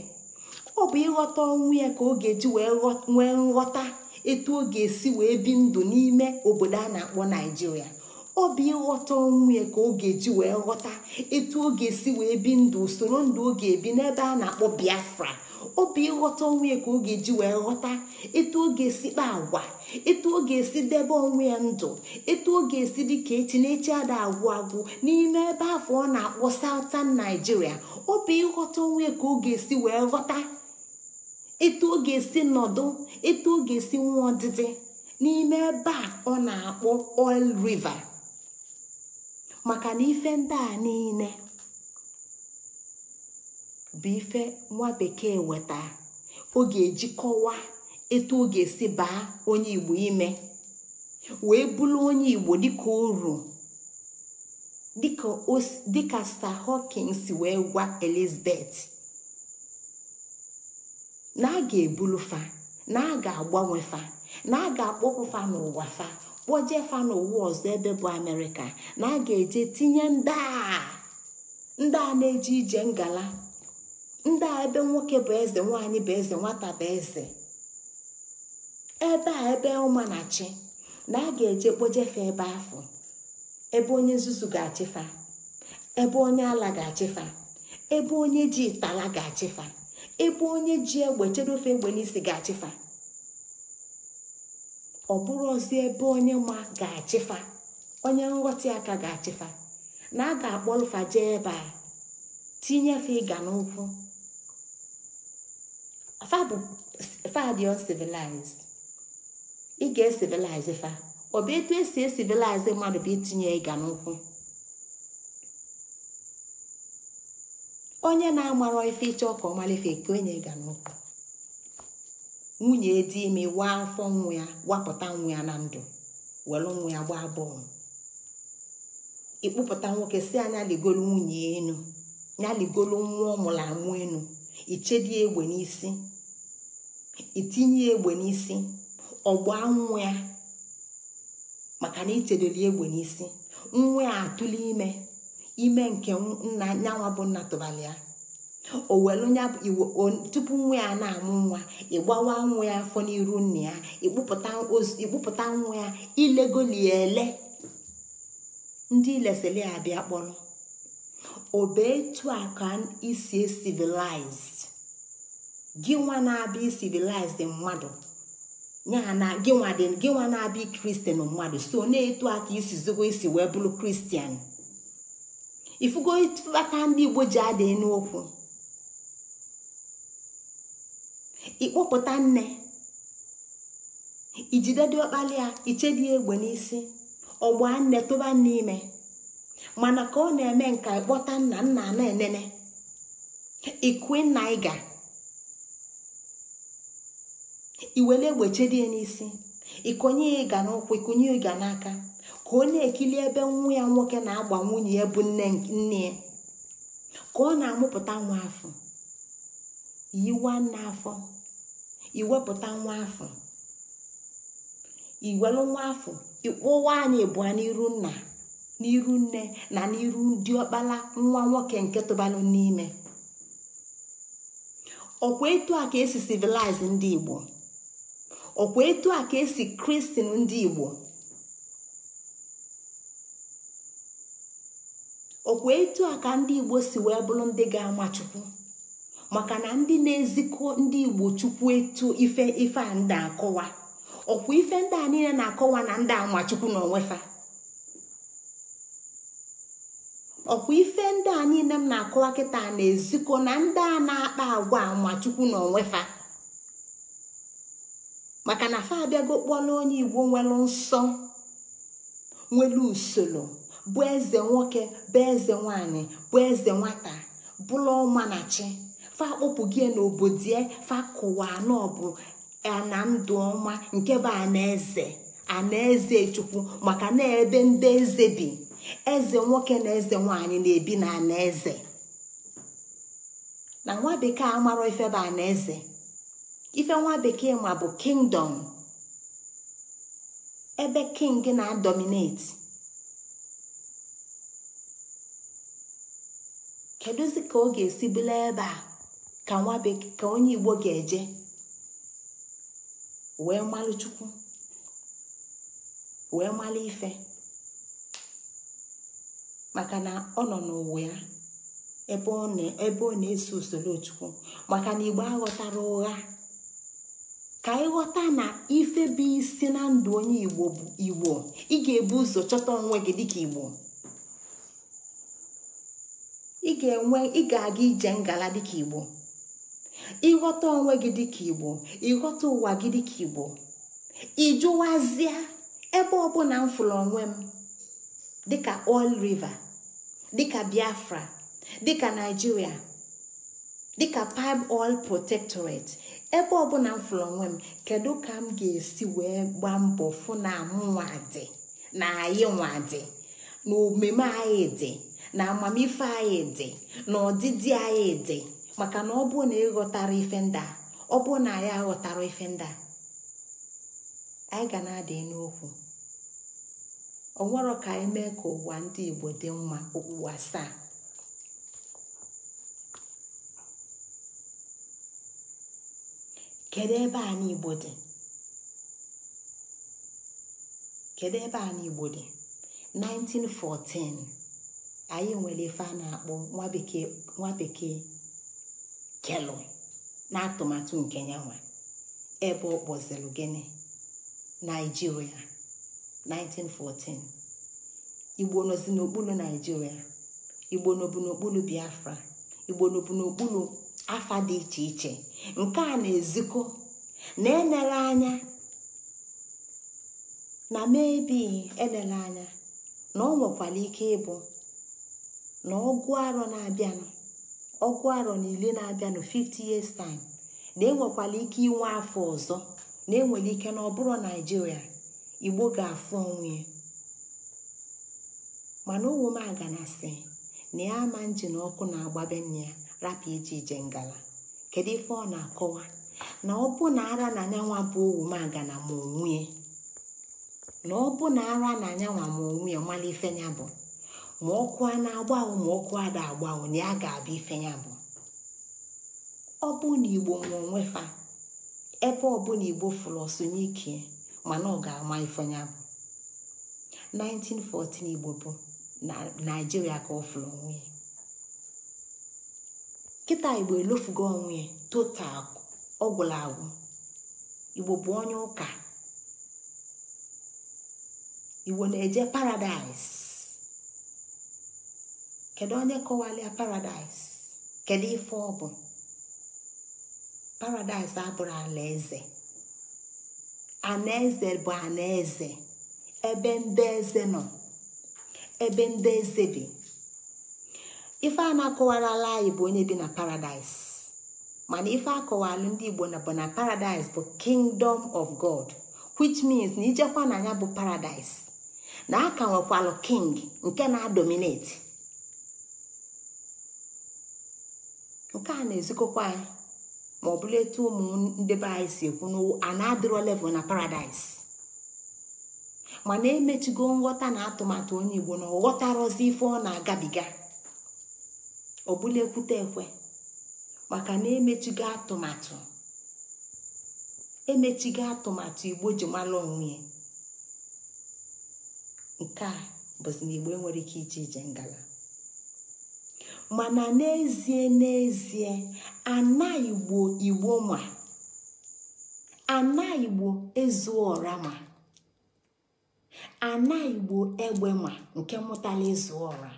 ọ bụ ịghọta onwe ya ka ọ ga-eji wee nwee nghọta etu ọ ga-esi wee bi ndụ n'ime obodo a na-akpọ naijiria obi ịghọta ọnwụ ya ka ọ ga-eji wee ghọta etu ọ ga-esi wee bi ndụ usoro ndụ ọ ga-ebi n'ebe a na-akpọ biafra obi ịghọta ọnwụ ya ka ọ ga-eji wee ghọta etu ọ ga-esi kpa agwa etu ọ ga-esi debe onwe ya ndụ etu ọ ga-esi dị ka echi na-echi ada agwụ agwụ n'ime ebe afọ ọ na-akpọ sautan naijiria obi ịghọta onwe ya ka ọ ga-esi wee ghọta etu ọ ga-esi nọdụ etu ọ ga-esi nwa ọdịdị n'ime ebe a ọ na-akpọ Oil River maka na ife ndị a niile bụ ife nwa bekee weta ọ ga-ejikọwa etu ọ ga-esi baa onye igbo ime wee bụrụ onye igbo dịka uru dịka Sir Hawkins wee gwa Elizabeth na a ga-ebulu fa na a ga-agbanwe fa na a ga-akpọpụ fa n'ụwa fa kpojefa n'ụwa ọzọ ebe bụ amerịka na a ga-eje tinye ndị a na-eje ije ngala ndị a ebe nwoke bụ eze nwaanyị bụ eze nwata bụ eze ebe a ebe ụmanachi na a ga-eje kpojefa ebe afọ ebe onye nzuzu ga-achịfa ebe onye ala ga-achịfa ebe onye ji itala ga-achịfa ebe onye ji egbe chere ofe egbe n'isi ga-achịfa ọ bụrụzi ebe onye ma ga-achịfa onye nghọta aka ga-achịfa na a ga-akpọlụfa jee ebe a tinyefe ịga n'ụkwụ fa dị uncivilized ị ga-esivilize fa ọ bụ etu esi esivilize mmadụ bụ itinye ịga n'ụkwụ onye na-amara ife ịchọ ka ọ mara ka onye ịga n'ụkwụ nwunye dị ime waa afọ nwa ya wapụta nwa ya na ndụ welu nwa ya gbaa bọọlụ ịkpụpụta nwoke si anya ligolu nwunye enu ya ligolu nwa ọmụrụ amụ enu ichedi egbe n'isi itinye egbe n'isi ọgba nwa ya maka na ichedoli egbe n'isi nwa ya atụli ime ime nke nna nyanwa bụ nna tụbali ya o welu nya tupu nwa ya na-amụ nwa ịgbawa nwa ya afọ n'iru nna ya ịkpụpụta nwa ya ilegolie ele ndị ilesili ya bịa kpọrọ obe etu a ka isi e civilized gị nwa na-abịa civilized mmadụ ya gị nwa na-abịa kristian mmadụ so na-etu aka isi zogo isi wee bụrụ kristian ifugo ịtụbata ndị igbo ji adịghị n'okwu ịkpọpụta nne ijide dị ọkpali ya ichedi egbe n'isi ọgba nne tụba n'ime mana ka ọ na-eme nka ịkpọta nna nna na enene ikwe nna ịga iwele egbe chedie n'isi ikonye ịga n'ụkwụ ikonye ịga n'aka ka ọ na-ekili ebe nwa ya nwoke na-agba nwunye ya bụ nne ya ka ọ na-amụpụta nwa afọ yiwa nna afọ iwepụta nwa afọ iwelu nwa afọ ịkpụwa anyị ịbụa n'iru nna n'iru nne na n'iru ndị ọkpala nwa nwoke nke tụbalụ n'ime ọkwa etu a ka esi civilize ndị igbo ọkwa etu a ka esi kristin ndị igbo ọkwa etu a ka ndị igbo si wee bụrụ ndị ga-ama chukwu maka na ndị na-ezikọ ndị igbo chukwu etu ife ife a ndị akọwa ọkwa ife ndị a na-akọwa na ndị amachukwu ife ndị a niile m na-akọwa kịta na-ezikọ na ndị a na-akpa agwa amachukwu na onwefa maka na fa abịago igbo nwere nsọ nwere usoro bụ eze nwoke bụ eze nwanyị bụ eze nwata bụrụ fa kpọpụ gị n'obodo fa kụwa n'ọbụ na ndụ ọma nke bụ anaeze anaeze chukwu maka na ebe ndị eze bi eze nwoke na eze nwanyị na-ebi na anaeze na nwa bekee amarọ ife bụ anaeze ife nwa bekee ma bụ kingdom ebe king na-adominate kedụzi ka ọ ga-esi bụla ebe a ka nwa ka onye igbo ga-eje wee malụ chukwu wee malụ ife maka na ọ nọ n'ụwa ya ebe ọ na-eso usoro chukwu maka na igbo aghọtara ụgha ka ịghọta na ife bụ isi na ndụ onye igbo bụ igbo ị ga-ebu ụzọ chọta onwe gị dịka igbo ị ga aga ije ngala dịka igbo ịghọta onwe gị dịka igbo ịghọta ụwa gị dịka igbo ịjụwazịa ebe ọbụla m fụrụ onwe m dịka oil river dịka biafra dịka naijiria dịka Pipe oil protectorate ebe ọbụla m fụrụ onwe m kedu ka m ga-esi wee gba mbọ fụ na mụnwa dị na anyị nwadị na omume anyị dị na amamife anyị dị na ọdịdị anyị dị maka na ọ bụ na ịghọtara ife nda ọ bụ na ya aghọtara ife nda anyị ga na-adị n'okwu nwere ka anyị mee ka ụwa ndị igbo dị mma okpukpu asaa kedu ebe a igbo dị kedu ebe anyị igbo dị 1914 anyị nwere ife a na-akpọ nwa bekee kelụ na atụmatụ nke yanwa ebe ọ kpọziri gịnị naijiria 1914 igbo nọzi n'okpuru naijiria igbo n'okpuru biafra igbo n'okpuru afa dị iche iche nke a na-ezikọ na enere anya na mebi enere anya na ọ nwekwara ike ịbụ na ọgụ arọ na-abịanụ ọkụ aro na ile na-abịa na 50 years time na enwekwala ike inwe afọ ọzọ na enwere ike na ọ bụrụ naijiria igbo ga-afụ onwe mana aga na si na ya ama njin ọkụ na-agbabe nne ya rapụ ije ije ngala kedu ife ọ na-akọwa na ọ bụ na ara na anyanwa bụ aga na ma onwe na ọ bụ na ara na anyanwa ma onwe ya bụ ma ọkụ a na-agbanwe ma ọkụ a ga agbanwe na ya ga-abịa ife ya bụ ọ bụ na igbo nwe onwe fa ebe ọbụla igbo fụrụ ọsonye ike mana ọ ga-ama ife ya bụ 1914 igbo bụ na naijiria ka ọ fụrụ onwe ya kịta igbo elofugo onwe ya total ọgwụla agwụ igbo bụ onye ụka igbo na-eje paradaịs kedu onye kọwalịa paradaịs kedu ife ọ bụ paradaịs abụrụ alaeze anaeze bụ anaeze ebe ndị eze nọ ebe ndị eze ife a na ala anyị bụ onye bi na paradaịs mana ife akọwalụ ndị igbo na bụ na paradaịs bụ kingdom of god which means na ijekwa na ya bụ paradaịs na aka nwekwalụ king nke na-adominate nke a na-ezikọkwa anyị ma ọ bụla etu ụmụ ndị anyị si ekwu na na adịro level na paradaịs mana emechigo nghọta na atụmatụ onye igbo na ọ ghọtarọzi ife ọ na-agabiga ọ bụla ekwute ekwe maka na emechigo atụmatụ emechigo atụmatụ igbo ji mara onwe ya nke a bụzi na igbo enwere ike ije ije ngala mana n'ezie n'ezie ana igbo igbo ma ana igbo ezuọra ma ana igbo egbe ma nke mụtala ezuora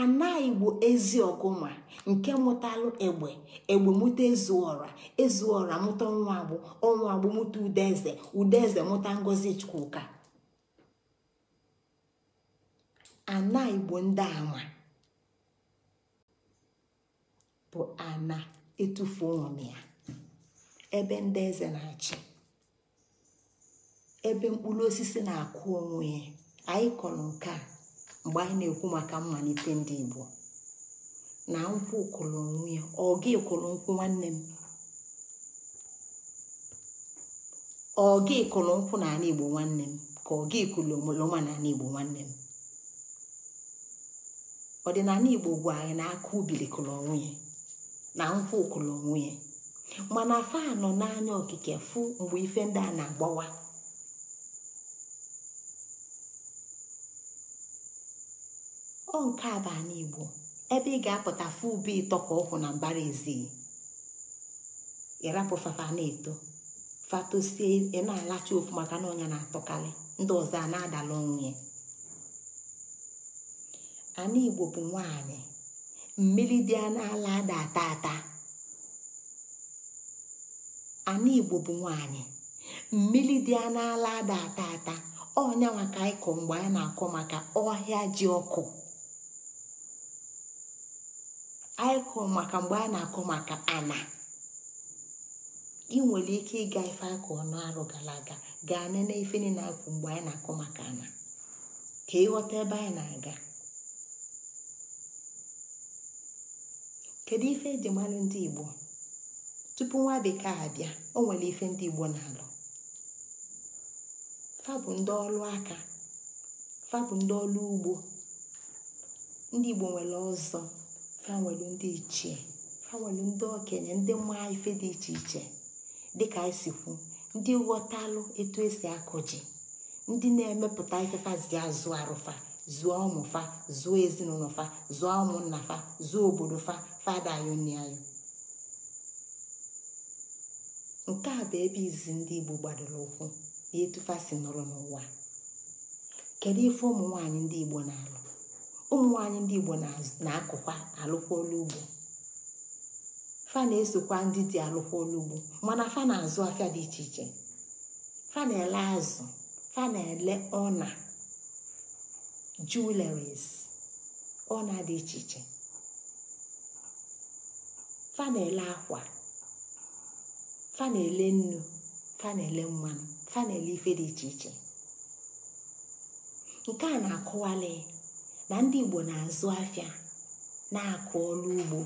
ana igbo ezi ọgụma nke mụtalụ egbe egbe mụta ezuora ezuọra mụta ọnwa agbụ ọnwa agbụ mụta udeze udeze mụta ngozi chukwuka ana Igbo ndị ama bụ ana etufu ụmụ ya ebe ndị eze na-achị ebe mkpụrụ osisi na-akụ onwe ya anyị kọrọ nke a mgbe anyị na-ekwu maka mmalite ndị Igbo na nkwụ ụkọrọ onwe ya ọ gị kwụrụ nkwụ nwanne m ọ kụrụ nkwụ Igbo nwanne m ka ọ gị nwa na n'ala Igbo nwanne m ọdịnala igbo gwa anyị na aka ubili ya na nkwụ kụrụ ya mana fa nọ n'anya okike fụ mgbe ife ndị a na-agbawa ọ nke a bụ ala igbo ebe ị ga-apụta fụ ube ịtọ ka ọkwụ na mbara ezi ịrapụ fafa na-eto fatosie ị na-alacha ofu maka na ọnya na-atọkarị ndị ọzọ a na-adala onwe ya ana igbo bụ nwanyị mmiri dị n'ala ada ata ata ana igbo bụ nwanyị mmiri dị n'ala ada ata ata ọnya maka ịkọ mgbe a na-akọ maka ọhịa ji ọkụ ịkọ maka mgbe a na-akọ maka ana ị nwere ike ịga ife akọ ọnụ arụ gara aga gaa nene ife na-akwụ mgbe anyị na-akọ maka ana ka ịghọta ebe anyị na-aga kedu ife eji ndị igbo tupu nwa bekee abịa o nwere ife ndị igbo na-alụ fa bụ ndị ọlụ aka fa bụ ndị ọlụ ugbo ndị igbo nwere ọzọ fa nwere ndị ichie fa nwere ndị okenye ndị mma ife dị iche iche dịka isikwu ndị ghọtalụ etu esi akụ ji ndị na-emepụta ifefazi azụ arụfa zụọ ụmụfa zụọ ezinụlọ fa zụọ ụmụnna fa zụọ obodo fa fada anyị nne anyị nke a bụ ebe izi ndị igbo gbadoro ụkwụ na etufasi nọrọ n'ụwa kedu ife ụmụ nwanyị ndị igbo na-alụ ụmụ nwanyị ndị igbo na-akụkwa alụkwa ugbo fa na-esokwa ndị dị alụkwa ugbo mana fa na-azụ afịa dị iche iche fa na-ele azụ fa na-ele ọna jewelries na dị iche iche fa na akwa fanele na nnu fanele mmanụ fanele ife dị iche iche nke a na-akọwali na ndị igbo na-azụ afịa na-akụ ọrụ ugbo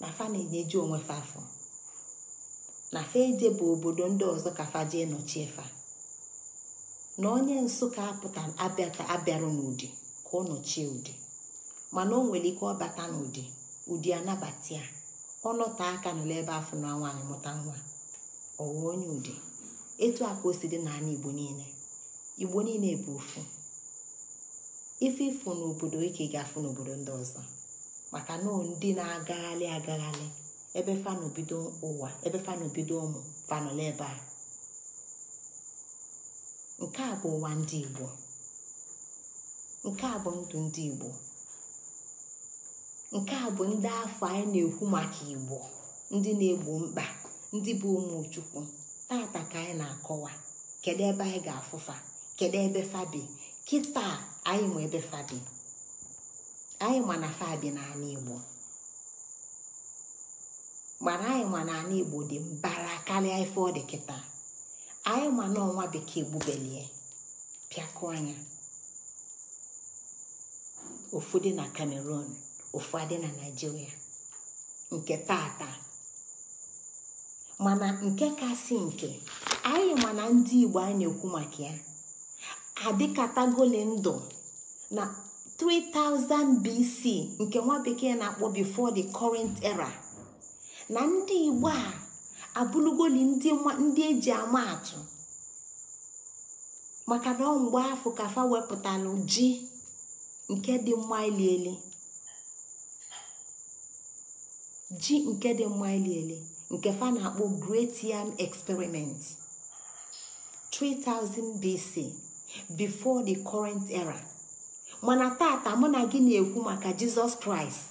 na fa na onwe fa na fa bụ obodo ndị ọzọ ka fa nọchie fa na onye nsụka apụta abịarụ n'ụdị ka ọ nọchie ụdị mana o nwere ike ọbata n'ụdị ụdị anabata ya ọ nọta aka n'ụlọ ebe afọ na nwaanyị mụta nwa ọwa onye ụdị etu a ka o si dị n'ala igbo niile igbo niile bụ ofu ife ịfụ n'obodo ike ga-afụ n'obodo ndị ọzọ maka na ndị na-agagharị agagharị ebe fanụ ụwa ebe fanụ ụmụ fanọla ebe a nke a bụ ụwa ndị igbo nke a bụ ndụ ndị igbo nke a bụ ndị afọ anyị na-ekwu maka igbo ndị na-egbo mkpa ndị bụ ụmụ chukwu tata ka anyị na-akọwa kedụ ebe anyị ga-afụfa kedu ebe fabi kịta anyị ma ebe anyị ma na fabi n'ala igbo mana anyị ma na igbo dị mbara karịa ife ọ dị kịta anyị ma na ọnwa bekee gbubelie anya ofu dị na cameroon ofu adị na naijiria nke tata mana nke kasị nke anyị mana ndị igbo anyị na-ekwu maka ya adịkatagole ndụ na 3000 BC nke nwa bekee na-akpọ before the current era na ndị igbo a abụlugoli ndị eji ama atụ maka na ọ mgbe afọ kafa wepụtara ji nke dị mma ili nke fa na-akpọ great yam experiment 3000 BC before the current era mana tata mụ na gị na-ekwu maka jizọs kraịst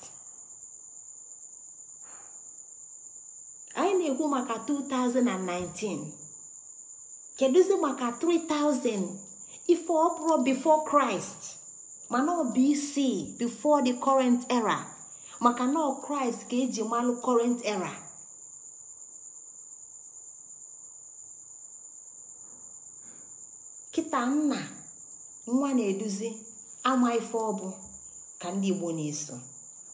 na-ekwu maka 2019 kedụzi maka 3000 ife ọpụrụ before Christ mana ọ bụ isii before the current era maka na ọ ka eji malụ current era kịta nna nwa na-eduzi ama ife ọbụ ka ndị Igbo na-eso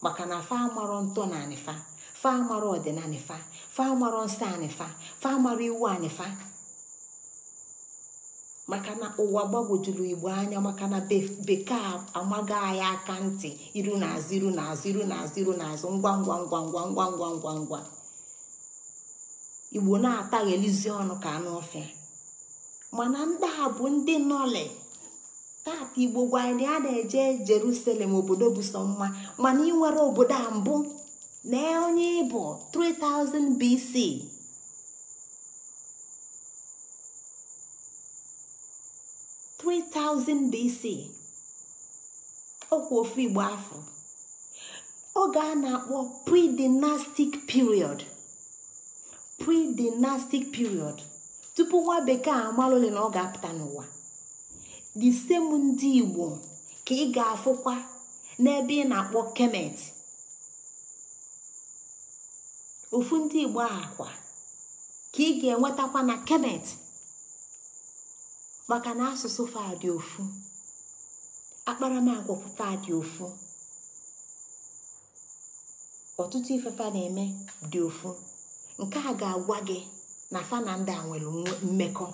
maka na fa amarọ ntọ na anịfa fa amarọ ọdịnanịfa fa amarọ nsọ anyị fa fa amarọ iwu anyị fa maka na ụwa gbagwojuru igbo anya maka na bekee amaghị anyị aka ntị iru na azụ iru na azụ iru na azụ iru na azụ ngwa ngwa ngwa ngwa ngwa ngwa ngwa ngwa igbo na-ataghelizi ọnụ ka anụ ọfịa mana ndị a bụ ndị nọle tata igbo gwanyị na a na-eje jeruselem obodo bụ sọ mma mana ị nwere obodo a mbụ na onye ịbụ 3000 BC Three BC ofu Igbo afọ oge a na-akpọ pre-dynastic period tupu nwa bekee amala ole na ọ ga-apụta n'ụwa the same ndị Igbo ka ị ga-afụkwa n'ebe ị na-akpọ Kemet ofu ndị igbo akwa ka ị ga-enwetakwa na kemet maka na asụsụ fadị ofu akparamagwa fadị ofu ọtụtụ ifefa na-eme dị ofu nke a ga-agwa gị na fa a nwere mmekọ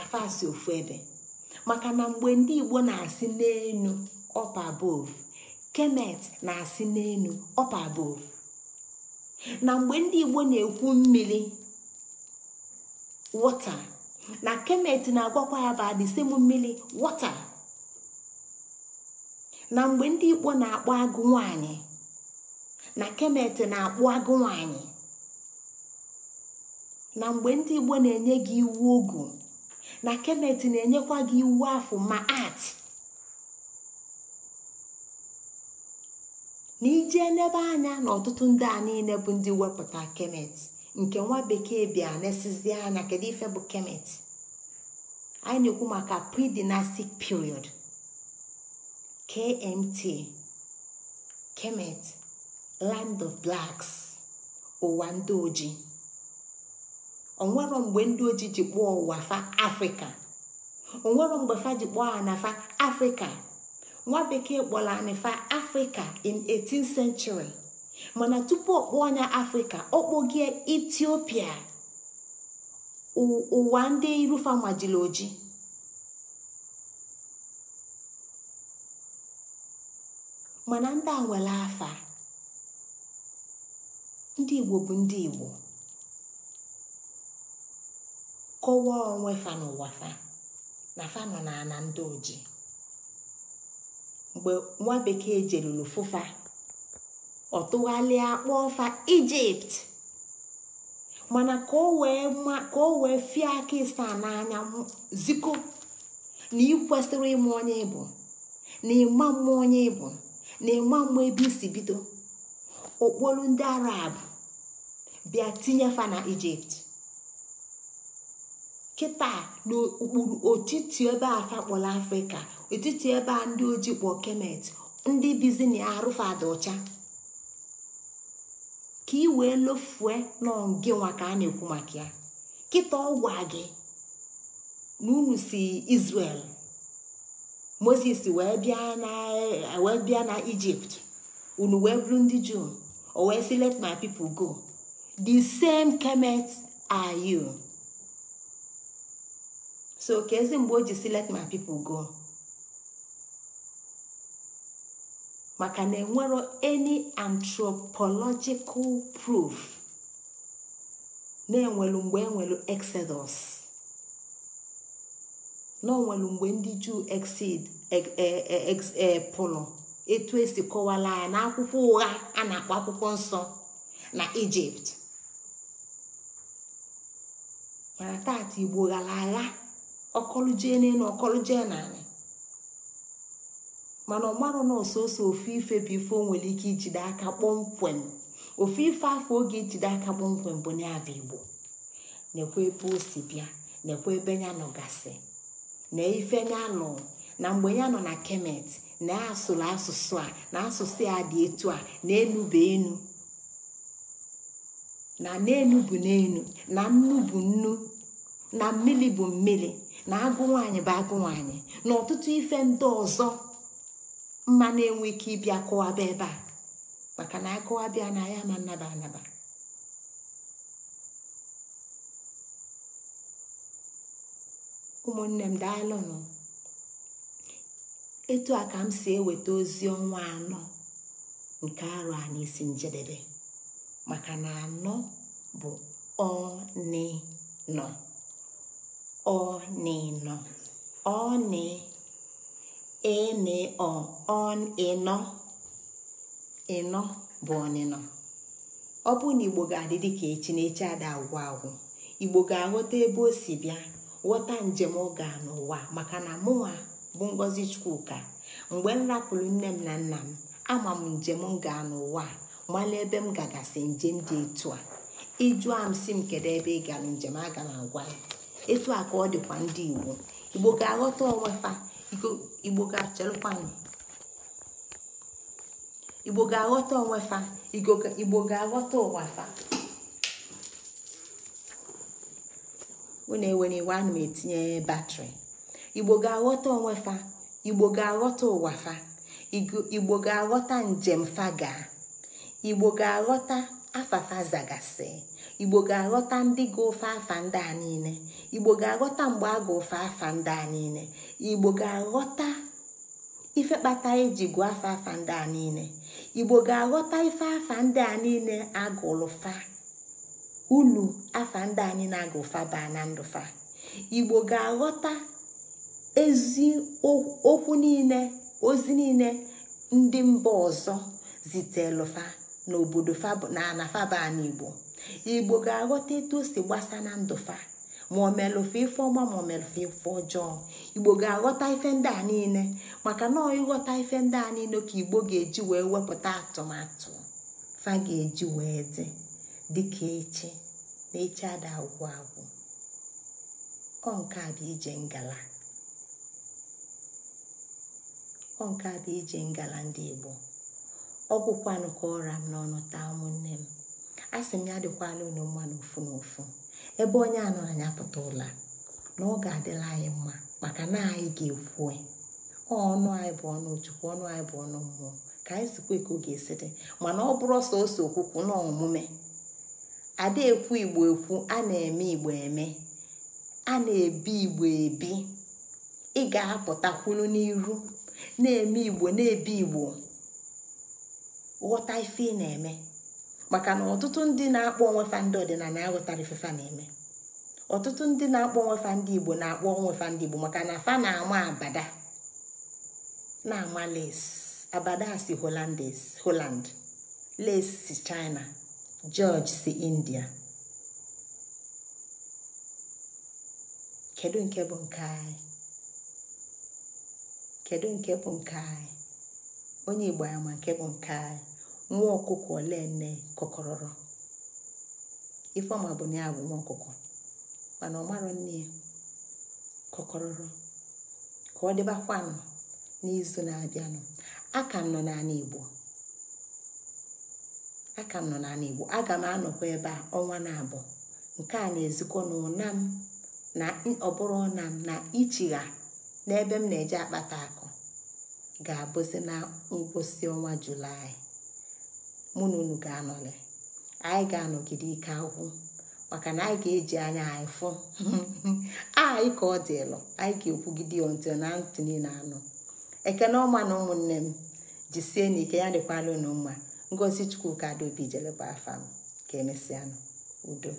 afasi ofu ebe maka na mgbe ndị igbo na-asị n'enu ọpa bov kemet na-asị n'enu ọpa bov na mgbe ndị igbo na-ekwu mmiri wọta na kemet na-agwakwa ya ba disem mmiri wọta na mgbe ndị igbo na-akpọ agụ nwanyị na kemet na-akpụ agụ nwanyị na mgbe ndị igbo na-enye gị iwu ogu na kemet na-enyekwa gị iwu afọ ma ati. na ije n'ebe anya na ọtụtụ ndị a niile bụ ndị wepụta kemet nke nwa bekee bịa na anya kedu ife bụ kemet anyị na-ekwu maka pre period kmt kemet land of blacks ụwa ndị ojii onwero mgbe ndị ojii ji kpọọ ụwa afrịka onwero mgbe fa ji kpọọ ha na fa afrịka nwa bekee kpọrọ anịfa afrịka in 18th century mana tupu ọkpọ onye afrịka ọkpọgie etiopia ụwa ndị fa majiri oji mana ndị a nwere afa ndị igbo bụ ndị igbo kọwaa onwe fa n'ụwa fa na fa nọ na ndị oji mgbe nwa bekee jeluru fụfa ọ tụgharịa kpọọfa ọfa ijipt mana ka o wee fie aka ịsa n'anya ziko na ị kwesịrị ịma onye ịbụ na ịma mma onye ịbụ na ịma mma ebe isi bido okporo ndị arab bịa tinye fa na ijipt kịta n'okpuru otiti ebe afa kpọrọ afrịka etiti ebe a ndị ojii kpọ kemet ndị bizini arụfadị ọcha ka ị wee lofue n'ọngị nwa ka a na-ekwu maka ya kịta ọgwa gị na unu si Israel Moses wee bịa na Ijipt unu wee bụrụ ndị Juu o wee sị let my people go the same kemet are you. so ka ezi mgbe o ji si let my people go maka na enwero any anthropological proof na-enwelu mgbe enwelu exodus na onwelu mgbe ndị juu exid e, e, e, pụlụ etu esi kọwala ya na akwụkwọ ụgha a na-akpọ akwụkwọ nsọ na ijipt mana taata igbo ghara agha ọkọlụjee n'elu ọkọlụjee n'ala mana ọmarụ na ososo ofu ife bụ ife nwere ike ijide aka kpọmkwem ofu ife afọ oge ijide aka kpọmkwem bụ n'abụ igbo na ebe o si bịa na-ekwe ebe ya gasị na ife ya nọ na mgbe ya nọ na kemet na asụrụ asụsụ a na asụsụ ya dị etu a na enu enu na n'enu bụ n'enu na nnu bụ nnu na mmiri bụ mmiri na agụ nwanyị bụ agụ nwanyị na ọtụtụ ife ndị ọzọ mma na-enwe ike ịbịa kụwaba ebe a maka na akụwabịa na ya ma naba anaba ụmụnne m daalụnụ etu a ka m si eweta ozi ọnwa anọ nke arụ a n'isi njedebe maka na anọ bụ ọnị nọ ọnịnọ ọnị enịọ ọnịnọ ịnọ bụ ọnịnọ ọ bụrụ na igbo ga-adị dị ka echi na echi ada agwụ agwụ igbo ga-aghọta ebe o si bịa ghọta njem ọ n'ụwa maka na mụnwa bụ ngozi chukwuka mgbe m rapụrụ nne m na nna m ama m njem ga n'ụwa mala ebe m gagasị njem dị etu a ịjụa m si m kedu ebe ị gara njem aga m agwa ya etu a ka ọ dịkwa ndị igbo igbo ga-aghọta onwefa igbo ga-achelụkwanụ igbo ga-aghọta onwefa igbo ga-aghọta ụwafa unu ewere iwe ana m etinye batrị igbo ga-aghọta onwefa igbo ga-aghọta ụwafa igbo ga-aghọta njem faga igbo ga-aghọta afafa zagasị igbo ga-aghọta ndị ga ofe afa ndị a niile igbo ga-aghọta mgbe a ga-ofe afa ndị a niile igbo ga-aghọta ife kpata eji gụọ afa afa ndị a niile igbo ga-aghọta ife afa ndị a niile agụlụfa ulu afa ndị a niile agụfa baa na ndụfa igbo ga-aghọta ezi okwu niile ozi niile ndị mba ọzọ zitelụfa n'obodo na baa n'igbo igbo ga-aghọta etu o si gbasa na ndụfa ma ọ mere ofe ife ọma ma ife ọjọọ igbo ga-aghọta ife ndị a niile maka na ịghọta ife ndị a niile ka igbo ga-eji wee wepụta atụmatụ fa ga-eji wee dị dịka echi na echi ada agwụ agwụ ọ nke a bụ ije ngala ọ nke a bụ ije ngala ndị igbo ọgwụkwanụ ka ọra m n'ọnụ taa ụmụnne m a sị m ya dịkwala unu mma n'ofu n'ofu ebe onye anọ anyị apụta ụla na ọ ga-adịla anyị mma maka na anyị ga-ekwu ọnụ anyị bụ ọnụ chukwu ọnụ anyị bụ ọnụ mmụọ ka anyị sikwa ka ọ ga-esi dị mana ọ bụrụ ọsọ ose okwukwu na omume ada ekwu igbo ekwu a na-eme igbo eme a na-ebi igbo ebi ị ga-apụtakwulu n'iru na-eme igbo na-ebi igbo ghọta ife ị na-eme maka na ọtụtụ ndị na-akpọ onwefa ndị ọdịnala na-aghọtara ifefa na-eme ọtụtụ ndị na-akpọ onwefa ndị igbo na-akpọ onwefa ndị igbo maka na fa na-ama abada na-ama les abada si holand les si china george si india kedu nke bụ nke anyị kedu nke bụ nke anyị onye igbo nke bụ nke anyị nwa ọkụkọ ole nne kọkọrọrọ ifeoma bụ na ya bụ nwa ọkụkọ mana ọ marọ nne ya kọkọrọrọ ka ọ dịbakwanụ n'izu na-abịanụ aka nọ n'ala igbo aka nọ n'ala igbo aga m anọkwa ebe a ọnwa na-abụ nke a na-ezikọ na m na ọbụrụ na m na ichigha n'ebe m na-eje akpata akụ ga-abụzi na ngwụsị ọnwa julaị mụ na unu ga anọlị anyị ga-anọgide ike akwụ maka na anyị ga-eji anya anyị fụ anyị ah, ka ọ dịlụ anyị ga-ekwugide onti na ntị niile anọ ekene ọma na ụmụnne m jisie na ike ya dịkwala unu mma ngozi chukwu ka dobi jeleba afa m ka emesịanụ udo